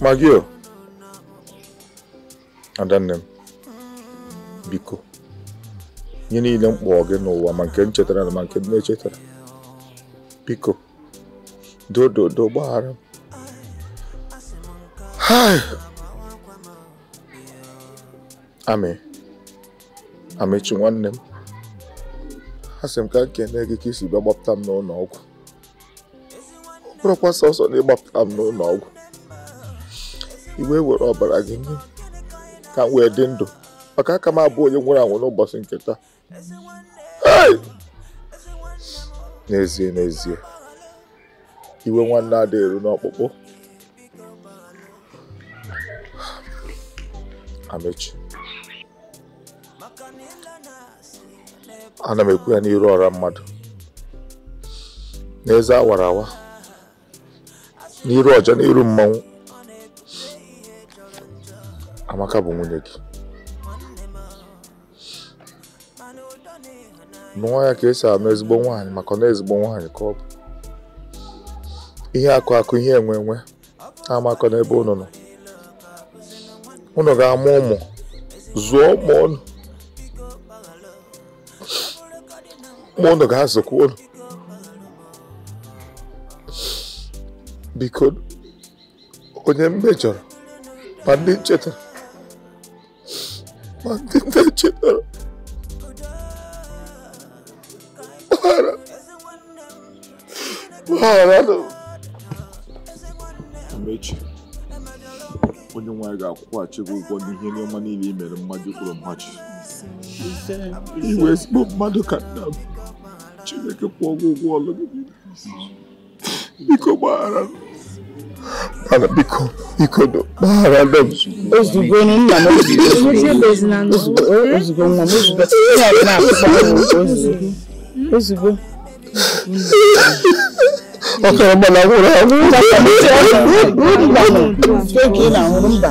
[SPEAKER 1] magio adanne m biko "Nye niile m gị n'ụwa ma nke nchetara na ma nke na-echetara biko dododo gbaghara m amị amechi nwanne m asị m ka m na gị ka isi bịa gbapụta m n'ụlọ ọgwụ bụrụkwa sọsọ na ịgbapụta m n'ụlọ ọgwụ iwe were ọbara gị nye ka m dị ndụ maka aka m abụ onye nwụrụ anwụ n'ụbọchị nke taa n'ezie n'ezie iwe nwanne ada eru n'ọkpụkpụ amechi ana m ekwu ya n'iru ọra mmadụ n'eze awara awa n'iru ọja n'iru mmanwụ amaka bụ nwunye gị nụọ ya ka esi anụ ezigbo nwanyị maka na ezigbo nwaanyị ka ọ bụ ihe akụ akụ ihe enwe enwe amakọ n'ebe ụnụ nọ ụnụ ga-amụ ụmụ zụọ ụmụ unu ụmụ ga-azụkwa unu biko onye mmejọrọ ma ndị nchetara. ma ndị nne chetara gbaghara
[SPEAKER 6] gbaghara na
[SPEAKER 1] onye nwanyị ga-akwụghachi gị ụgwọ n'ihe n'ọma niile i mere mmadụ kwuru mmachi iwe ezigbo mmadụ ka nna m Chineke kwụọ ụgwọ ọlụ gị biko gbaghara m Ana biko biko do baharada ozugbo nna m
[SPEAKER 2] ozugbo nwa m ozugbo ọkara mba na agwụrụ agwụ mba ka ị na-ahụrụ mba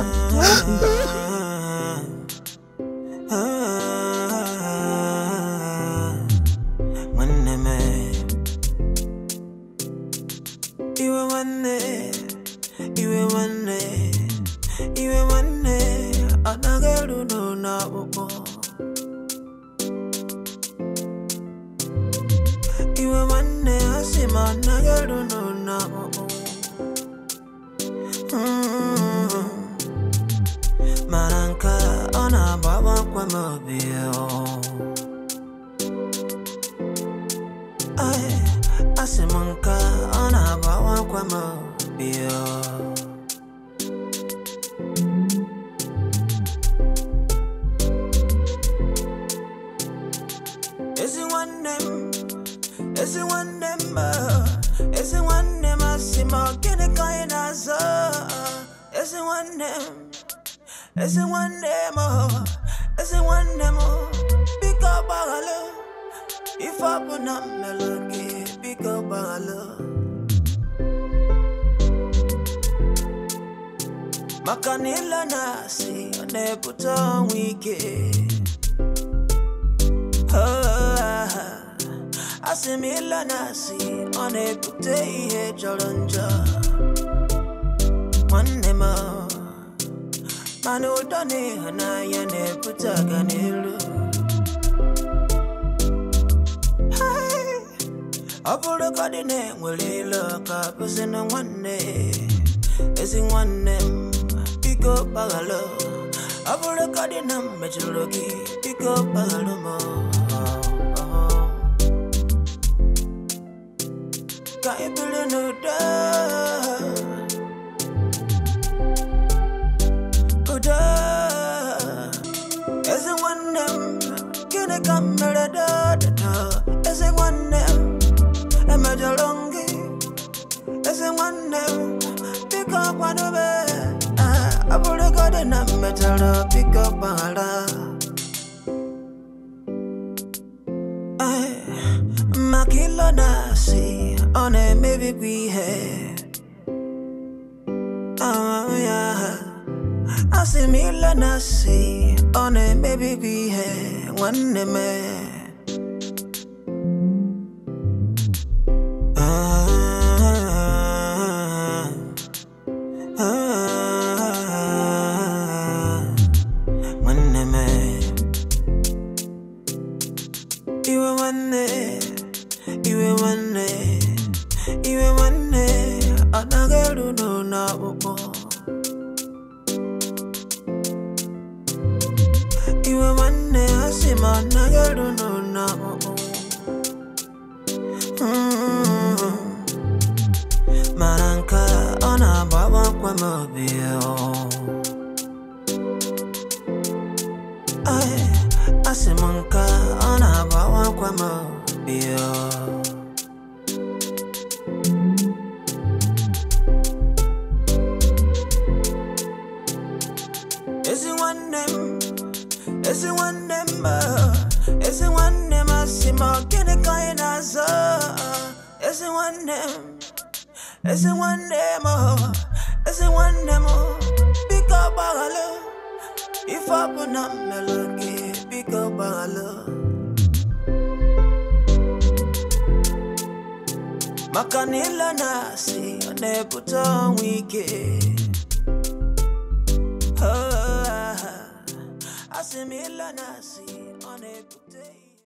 [SPEAKER 3] me come da da da da. Ese one e me jalongi. Ese one pick up one be. Ah, I put a god in a metal pick up ala. Ay, makilo nasi, one maybe we have. Um, oh, yeah. I see me, let us see. On it, maybe we have one man.